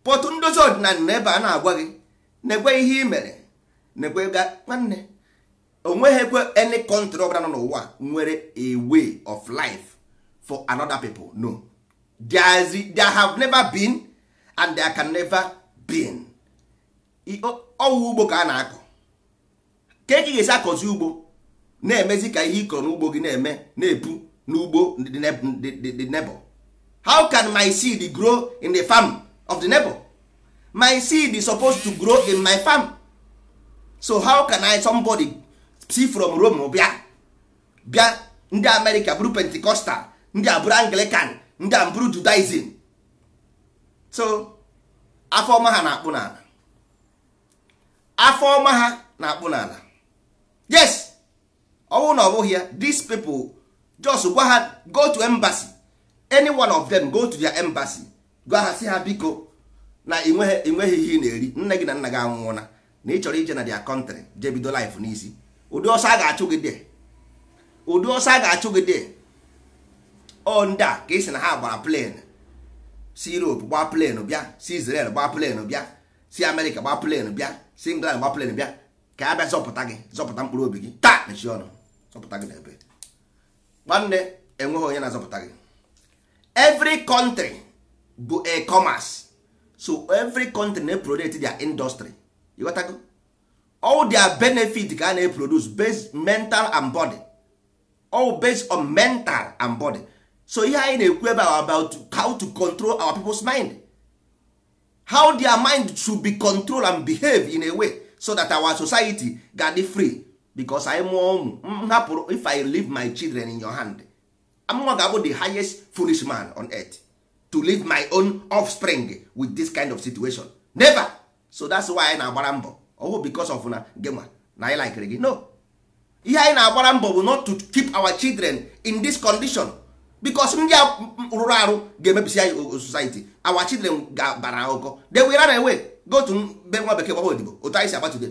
pọtụ ndozi ọdịnala na ebe a na-agwa gị na-egwe ihe ị mere na-egwe nwanne onweghịkwe any country ọbụla nọ n'ụwa nwere a way of life for another pipo no there, is, there have never been and there can never been ọwụ ugbo ka a na-akọ ka eke ga-esi akọzi ugbo na-emezi ka ihe ịkọrọ n'ugbo gị na-eme na-epu n'ugbo the nebo how can my seed grow in the farm of the nebo my seed is supposed to grow in my farm so how can I somebody si from rome bịa bịa ndị amerịka bụrụ pentikọstal ndị a bụrụ anglican ndị a bụrụ judaism so afọ ọma ha na-akpụ n'ala afọ ọma ha na-akpụ n'ala yes ọ na ọ bụghị ya these people just gwa ha go to embassy any one of them go to their embassy gwa ha si ha biko na enweghị ihe ị na-eri nne gị na nna gị anwụọla na ị chọrọ ije na their country jee bido life n'isi ụdị ọsọ a ga-achụ gị dị ụdị ọsọ a ga-achụ gị dị ọ ndị a ka esi na ha gbara plen si Europe gbaa plen bịa si Israel gbaa plen bịa si America gbaa plen bịa si England gbaa plen bịa ka a bịa zọpụta gị zọpụta mkpụrụ obi gị taa mechie ọnụ zọpụta gị n'ebe nwanne enweghị onye na-azọpụta gị every country bụ e commerce so every country na-eprodet their industry ịghọtago all their benefit ka a na based mental and body all based on mental and body so ihe anyị na-ekwu ebe about how to control our people's mind how their mind should be controlled and behave in a way so that our society ga free because I mụọ ụmụ mm, mm, if I leave my children in your hand am ga ga-abụ the highest foolish man on earth to leave my own offspring with this kind of situation never so that's why I na na-agbara mbọ ọwụ because of na gema na anyị likere gị no ihe anyị na-agbara mbọ bụ not to keep our children in this condition because ndị a rụrụ arụ ga-emebisi anyị society our children ga bara ụkọ de will run away go to be nwa bekee gbaba odibo otu anyị si agbatude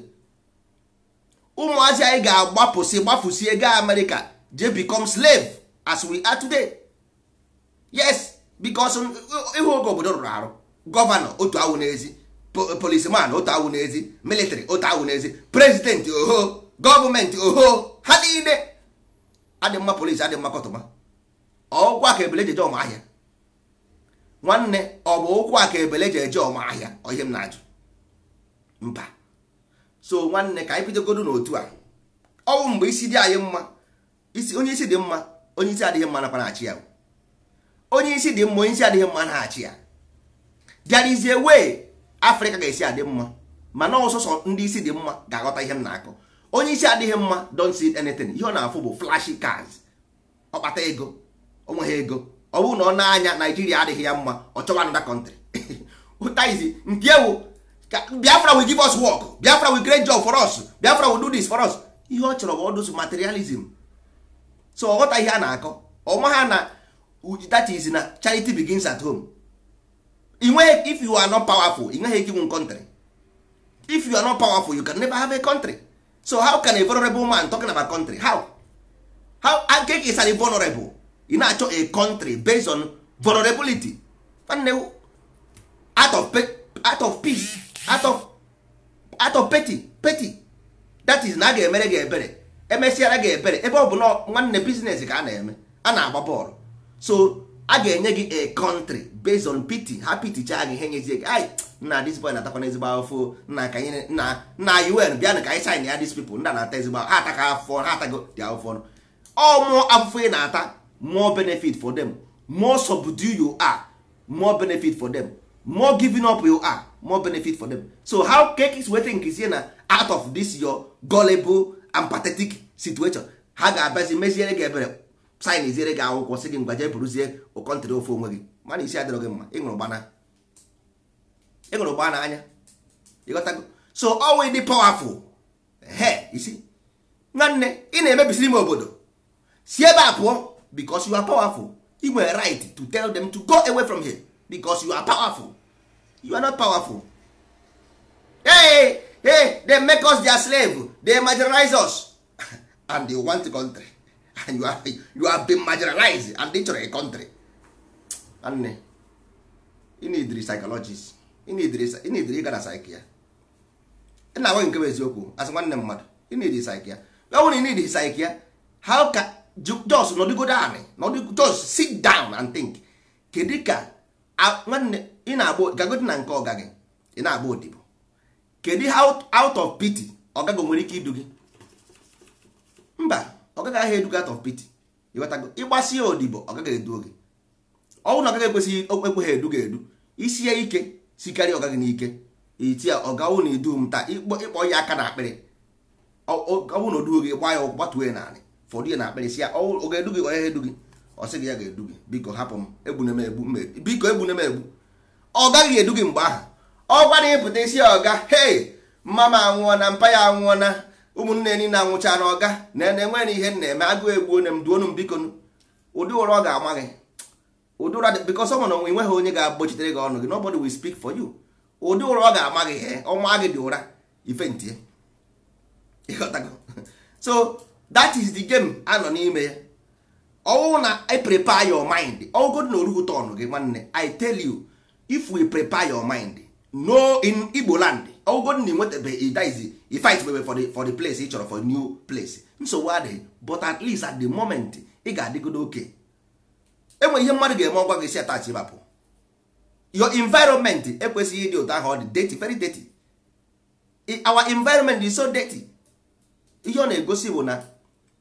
ụmụazị anyị ga-agbapụsị gbapụsie gaa America je become slave as we are today yes because ịhụ uh, uh, oge obodo rụrụ arụ gọvanọ otu awụ n'ezi policeman otu awụ n'ezi military otu awụ n'ezi prezidenti oho gọọmenti oho ha niile adị mma polisi adị mma kọtụma ọụkwa ka ebele jeje ọma ahịa nwanne ọ bụ ụkwụ a ka ebele ji eje ọma ahịa ihe m na-ajụ mba so nwanne ka anyị bidogodo n'otu a ọnwụ mgbe isi dị anyị mma onye isi dị mma onye isi adịghị mma nakwa na-achị ya onye isi dị mma onye isi adịghị mma na-achị ya there is a afrịka ga-esi adị mma mana ọsọsọ ndị isi dị mma ga-aghọta ihe m na-akọ onye isi adịghị mma don't see anything ihe ọ na-afụ bụ flashy cars ọkpata ego onweghị ego ọ bụrụ na ọ na-anya naijiria adịghị ya mma ọ chọwa another country <laughs> ụtaizi nke ewu biafra will give us work biafra will create job for us biafra will do this for us ihe ọ chọrọ bụ ọdụsụ materialism so ọ ghọta ihe a na-akọ ọma ha na that is na charity begins at home if you are not powerful ị nweghị ike inwe country if you are not powerful you can never have a country so how can a vulnerable man talking about country how how ankek is an vulnerable ị na-achọ a country based on vulnerability nwanne out of out of peace out of out of petty petty that is na a ga-emere gị ebere emesiara gị ebere ebe ọ bụ na nwanne business ka a na-eme a na-agba bọọlụ so a ga-enye gị a country based on pity ha pity chaa gị ihe nyezie gị ai na this boy na-atakwana ezigbo afọ nna ka anyị na na un bịanụ ka anyị sign ya these people nna na-ata ezigbo ha ataka afọ ha atago dị afọ ọ mụọ afụfụ ị na-ata more benefit for them more subdue you are more benefit for them more giving up you are more benefit for them so how cake is wetin is na out of this your gullible and pathetic situation ha ga-abazi mezie gị ebere saịn iziere gị akwụkwọ sị gị ngwa jee bụrụzie ụkọntịrị ofe onwe gị mana isi adịrọ gị mma ịṅụrụ gbaa n'anya go. so ọnwụ dị powerful he isi nwanne ị na emebisi ime obodo si ebe a pụọ bikos you are powerful you nwere right to tell them to go away from here bikos you are powerful you are not powerful hey, hey, they make us their slave they marginalize us <laughs> and they want the country <laughs> you have, you have been marginalized and ị chọrọ a country nwanne eh, ị need psychologist ị need ịga na psych ya ị na-agwa nke bụ eziokwu asị nwanne mmadụ ị need psych ya ọ bụrụ na ị need psych ya how ka jos nọdịgodo anị nọdịgo sit down and think kedu ka nwanne ị na-agba gagodi na nke ọga gị ị na-agba odibo kedu out of pity ọgago nwere ike idu gị mba ọ gaghị ahịa edugat of pity ịgbasi ya odibo ọ gaghị edu oge ọnwụ na ọ ekwesịghị okpekwe edu ga-edu isi ya ike si ọgaghị n'ike iti ya ọ gawụ na edu m taa ịkpọ ya aka na akpịrị ọnwụ na odu oge gba ya gbatuo ya naanị fọdụ ya na akpịrị si ya ọ ga-edu gị onye edu gị ọ sị gị ya ga-edu gị biko hapụ m egbune m egbu biko egbune m egbu ọ gaghị edu gị mgbe ahụ ọ gwara ịpụta isi ya ọga hei mama anwụọ na mpa ya anwụọ na ụmụnne na anwụcha na ọga na na enweghị ihe na-eme agụụ egbuo na m duonu m biko ụdị ụra ọ ga-ama gị ụdị ụra bikọs ọ nwere nweghị onye ga-agbochitere gị ọnụ gị nobody will speak for you ụdị ụra ọ ga-ama gị ihe ọnwa gị dị ụra ife ntie ịghọtago <laughs> so that is the game a nọ n'ime ya ọwụ na i prepare your mind ọwụgod na orugo ọnụ gị nwanne i tell you if we prepare your mind no in igbo land ọgwụgwọ na enwetabe idiz ifight bebe for the for the place ị chọrọ for new place nsogbu adịghị but at least at the moment ị ga-adịgodo oke enwe ihe mmadụ ga-eme ọgwa gị si atachi bapụ your environment ekwesịghị ịdị ụtọ ahụ ọ dị dirty very dirty our environment is so dirty ihe ọ na-egosi bụ na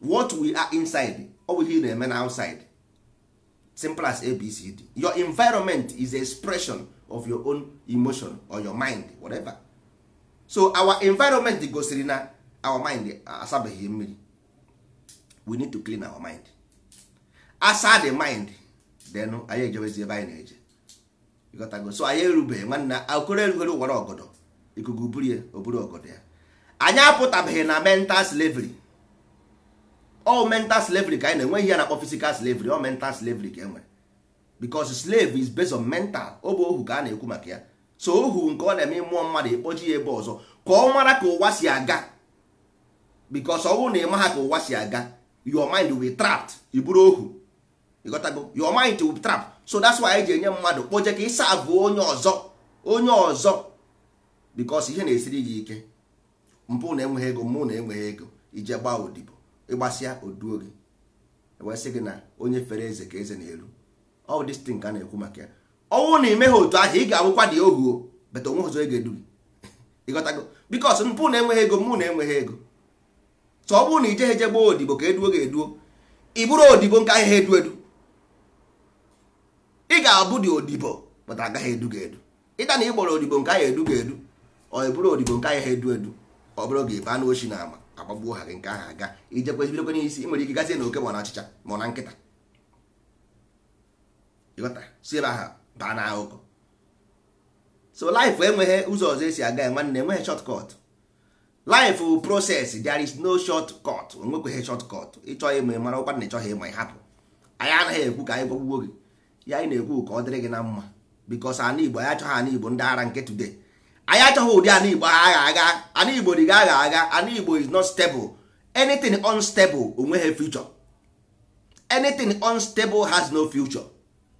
what we are inside ọ bụ ihe ị na-eme na outside simple as abcd your environment is expression of your own emotion or your mind whatever. so our environment gosiri na our mind asabeghị mmiri we need to clean our mind asa the mind then anyị ejebezi ebe anyị na-eje ịghọtago so anyị erubeghị nwanne akụrụ erugoro ụwara ọgọdọ ikuku burie oburu ọgọdọ ya anyị apụtabeghị na mental slavery all mental slavery ka anyị na-enwe ihe na-akpọ physical slavery all mental slavery ka e nwere because slave is based on mental ọ bụ ohu ka a na-ekwu maka ya so ohu nke ọ na-eme mmụọ mmadụ ekpoji ya ebe ọzọ ka ọ mara ka ụwa si aga bikos ọ bụrụ na ị ha ka ụwa si aga your mind will iburu ohu ịghọtago your mind will trap so that's why anyị ji enye mmadụ kpoje ka ịsa abụ onye ọzọ onye ọzọ bikos ihe na-esiri gị ike mpụ na enweghị ego mụ na enweghị ego ije gba odibo ịgbasịa oduo gị e wee sị gị na onye fere eze ka eze na-eru ọ destin ka a na-ekwu maka ya ọnwụ na ha otu ahụ ị ga-abụkwa dị ohu bata onwe ọzọ ị ga-edu ịghọtago bikos mpụ na-enweghị ego mụ na-enweghị ego so ọ bụrụ na ijeghị eje odibo ka eduo ga-eduo ị odibo nke ahịa edu edu ị ga-abụ dị odibo bata agaghị edu ga-edu ịta na ị odibo nke ahịa edu ga-edu ọ bụrụ odibo nke ahịa edu edu ọ bụrụ gị baa ochi na ama agbagbuo ha gị nke ahụ aga ijekwezibidokwe n'isi ị nwere ike gazie na oke ma na achịcha ma na nkịta si ebe ahụ baa na ahụkọ so life enweghị ụzọ ọzọ esi aga ya nwanne enweghị short cut life process there is no short cut onwekweghị short cut ịchọ ịma ị mara ọkwa na ịchọghị ịma ịhapụ. anyị anaghị ekwu ka anyị gwagwugwo gị ya anyị na-ekwu ka ọ dịrị gị na mma because ana igbo anyị achọghị ana igbo ndị ara nke today anyị achọghị ụdị ana igbo agha agha ana igbo dị agha agha ana igbo is not stable anything unstable onweghị future anything unstable has no future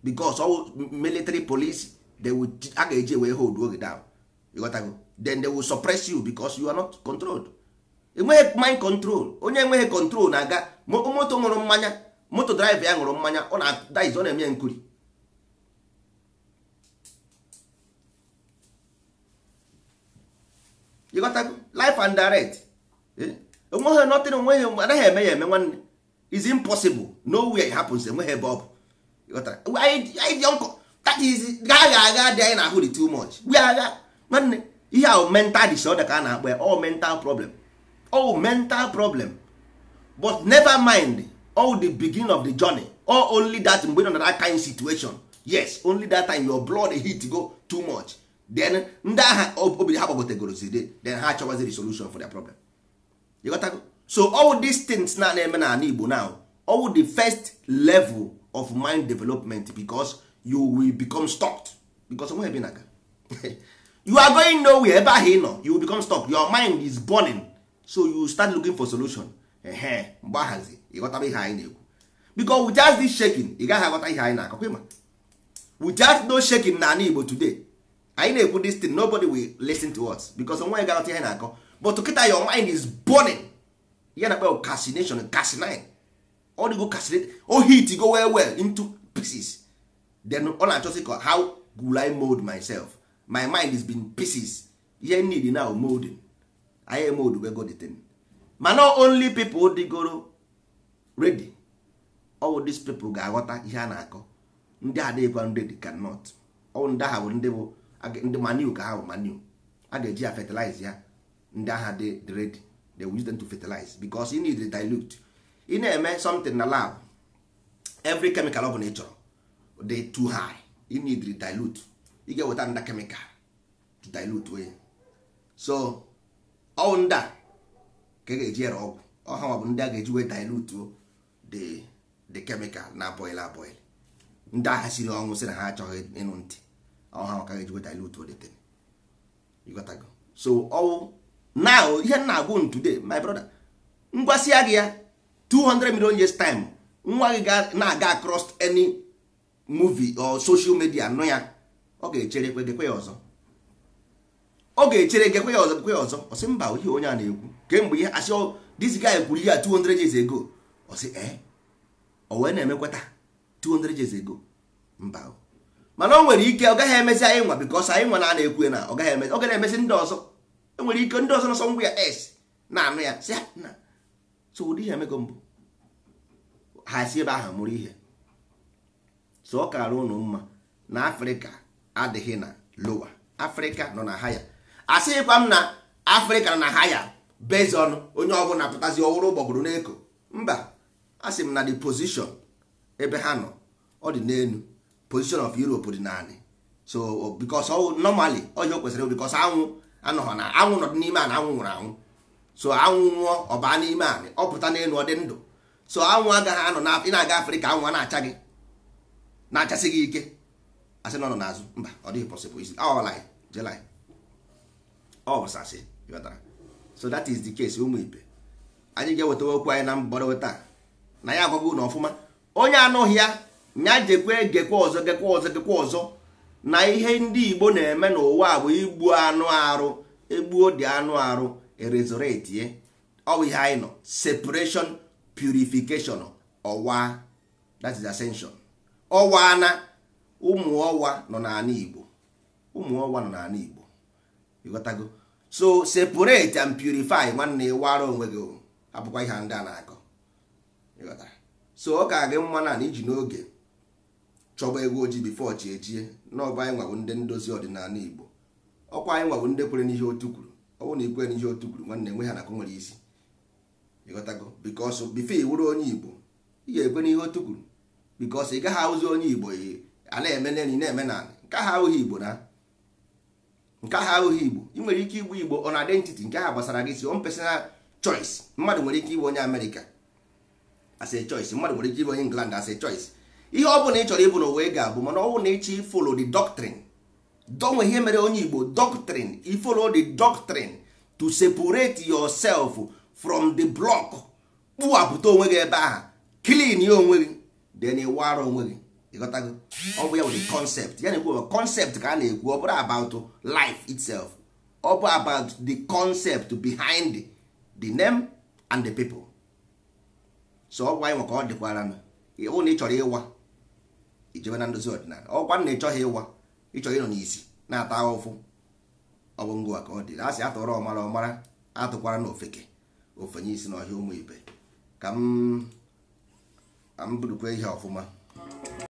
because all military police they will a ga-eji wee hold oge down ịghọtago then they will suppress you because you are not controlled enweghị mind control onye enweghị control na-aga moto ṅụrụ mmanya moto drive ya ṅụrụ mmanya ọ na-adaiz ọ na-eme nkuri ịghọtago life and direct enweghị eh? nothing onweghị anaghị eme ya eme nwanne is impossible way it happens enweghị ebe ọ bụ anyị dị ọkụ that is agha agha dị anyị na-ahụ dị too much gbuo agha nwanne ihe ahụ mental disorder ka a na-akpọ all mental problem all mental problem but never mind all the beginning of the journey or only that mgbe nọ na that kind situation yes only that time your blood heat go too much then ndị agha obiri ha gbagotegoro zide then ha the solution for their problem you got to go? so all these things na na-eme na ala Igbo now all the first level of mind development because you will become stuck. because nwe ebe naga you are going nowhere ebe ahụ ị nọ you will become stuck your mind is burning so you start looking for solution ehe mgbe ahazi ịghọtara ihe anyị na-ekwu because without this shaking ị gaghị aghọta ihe anyị na-akọkwa ịma without no shaking na ana Igbo today anyị na-ekwu this thing nobody will listen to us because nwe gaghọta ihe na-akọ but kịta your mind is burning ya na kpe casination casinine ọ dịgo kasịrị o hit go well well into pieces then ọ na-achọsị ka how will I mold myself my mind is been pieces ihe need now molding I mold we go the thing ma not only people dịgoro ready all these people ga-aghọta ihe a na-akọ ndị adịghịkwa ready cannot ọ ndị agha bụ ndị bụ ndị manu ka ha bụ manu a ga-eji ya fertilize ya ndị agha dị ready they will use them to fertilize because you need to dilute ị na-eme something na lab every chemical ọ bụla ị chọrọ dị too high you need to dilute ị ga-eweta nda chemical to dilute onye so ọwụ nda ka ị ga-eji ere ọgwụ ọhanwa bụ ndị a ga-eji wee dilute the the chemical na boil aboil ndị agha siri ọnwụ sị na ha achọghị ịnụ ntị ọhanwa ka ga-eji wee dilute the thing go so ọwụ now ihe na-agwụ today my brother ngwasị gị ya 200 million years time nwa gị na-aga across any movie or social media nụ ya ọ ga-echere gekwe ya ọzọ ọ ga-echere gekwe ya ọzọ gekwe ya ọzọ ọ sị mba ihe onye a na-ekwu kemgbe ihe asị this guy kwuru ya 200 years ago ọ sị eh ọ wee na-emekwata 200 years ago mba mana o nwere ike ọ gaghị emezi anyị nwa because anyị nwa na na-ekwu na ọ gaghị emezi ọ gaghị emezi ndị ọzọ enwere ike ndị ọzọ nọsọ ngwa ya s na-anụ ya sị na so ụdị ihe emego mbụ ha ebe ahụ mụrụ ihe so ọ kara ụnụ mma na afrịka adịghị na lowa afrịka nọ na haya asịghịkwa m na afrịka nọ na haya bezi ọnụ onye ọbụla pụtazi ọhụrụ gbọgburu n'eko mba asị m na the position ebe ha nọ ọ dị n'elu position of europe dị naanị so because normally ọ kwesịrị because anwụ anọghọ na anwụ nọ dị n'ime a na anwụ nwụrụ anwụ so anwụ nwụọ ọ baa n'ime anị ọ pụta n'elu ọ dị ndụ so anwụ agaghị anọ na ị na-aga afrịka anwụ na-acha gị na-achasị gị ike asị nọ n'azụ mba ọ dịghị pọsịbụl isi ọlaị jelai ọ bụsasị ghọtara so that is the case ụmụ ibe anyị ga-ewetawa okwu anyị na mgbọrọ taa na ya agwago na ọfụma onye anụghị ya nya jekwe gekwa ọzọ gekwa ọzọ gekwa ọzọ na ihe ndị igbo na-eme n'ụwa bụ igbu anụ arụ egbuo dị anụ arụ erezoretie eh? ọwụ ihe anyị nọ separation purification ọwa that is ascension ọwa na ụmụ ọwa nọ n'ala Igbo ụmụ ọwa nọ n'ala Igbo ịghọtago so separate and purify nwanne ịwara onwe gị abụkwa ihe ndị a na-akọ ịghọtara so ọ ka gị mma na iji n'oge chọba ego ojii bifo chi ejie n'ọba anyị nwabụ ndị ndozi ọdịnala Igbo ọkwa anyị nwabụ ndị kwere n'ihe otu kwuru ọ bụrụ na ikwe n'ihe otu kwuru nwanne nwe ha na akụ nwere isi ịghọtago bikọs bife wụrụ onye igbo ị ga-ekwe n'ihe otu kwuru bikọs ị gaghị ahụzi onye igbo a na-eme n'elu na-eme na nke ha ahụghị igbo na nke ha ahụghị igbo ị nwere ike igbu igbo ọ on identity nke ha gbasara gị si on personal choice mmadụ nwere ike ịbụ onye amerịka as a choice mmadụ nwere ike ịbụ onye england as a choice ihe ọ bụla ị chọrọ ịbụ n'ụwa ị ga-abụ mana ọ bụ na ịchọ ifolo the doctrine donwe ihe mere onye igbo doctrine you follow the doctrine to separate yourself from the block kpụwapụta onwe gị ebe ahụ clean ya onwe gị then ịwara onwe gị ịghọtago ọ bụ ya bụ concept ya na-ekwu concept ka a na-ekwu ọ bụrụ about life itself ọ bụ about the concept behind the, name and the people so ọ bụ anyị maka ọ dịkwara na ịhụ na ị chọrọ ịwa ijebe na ndozi ọdịnala ọkwa na ị chọghị ịwa ịchọrọ ịnọ n'isi na-ata ụfụ ọ bụ ka ọ dị asị atọrọ ọmara ọmara atụkwara na ofeke ofenye isi n'ọhịa ụmụ ibe ka m burukwa ihe ọfụma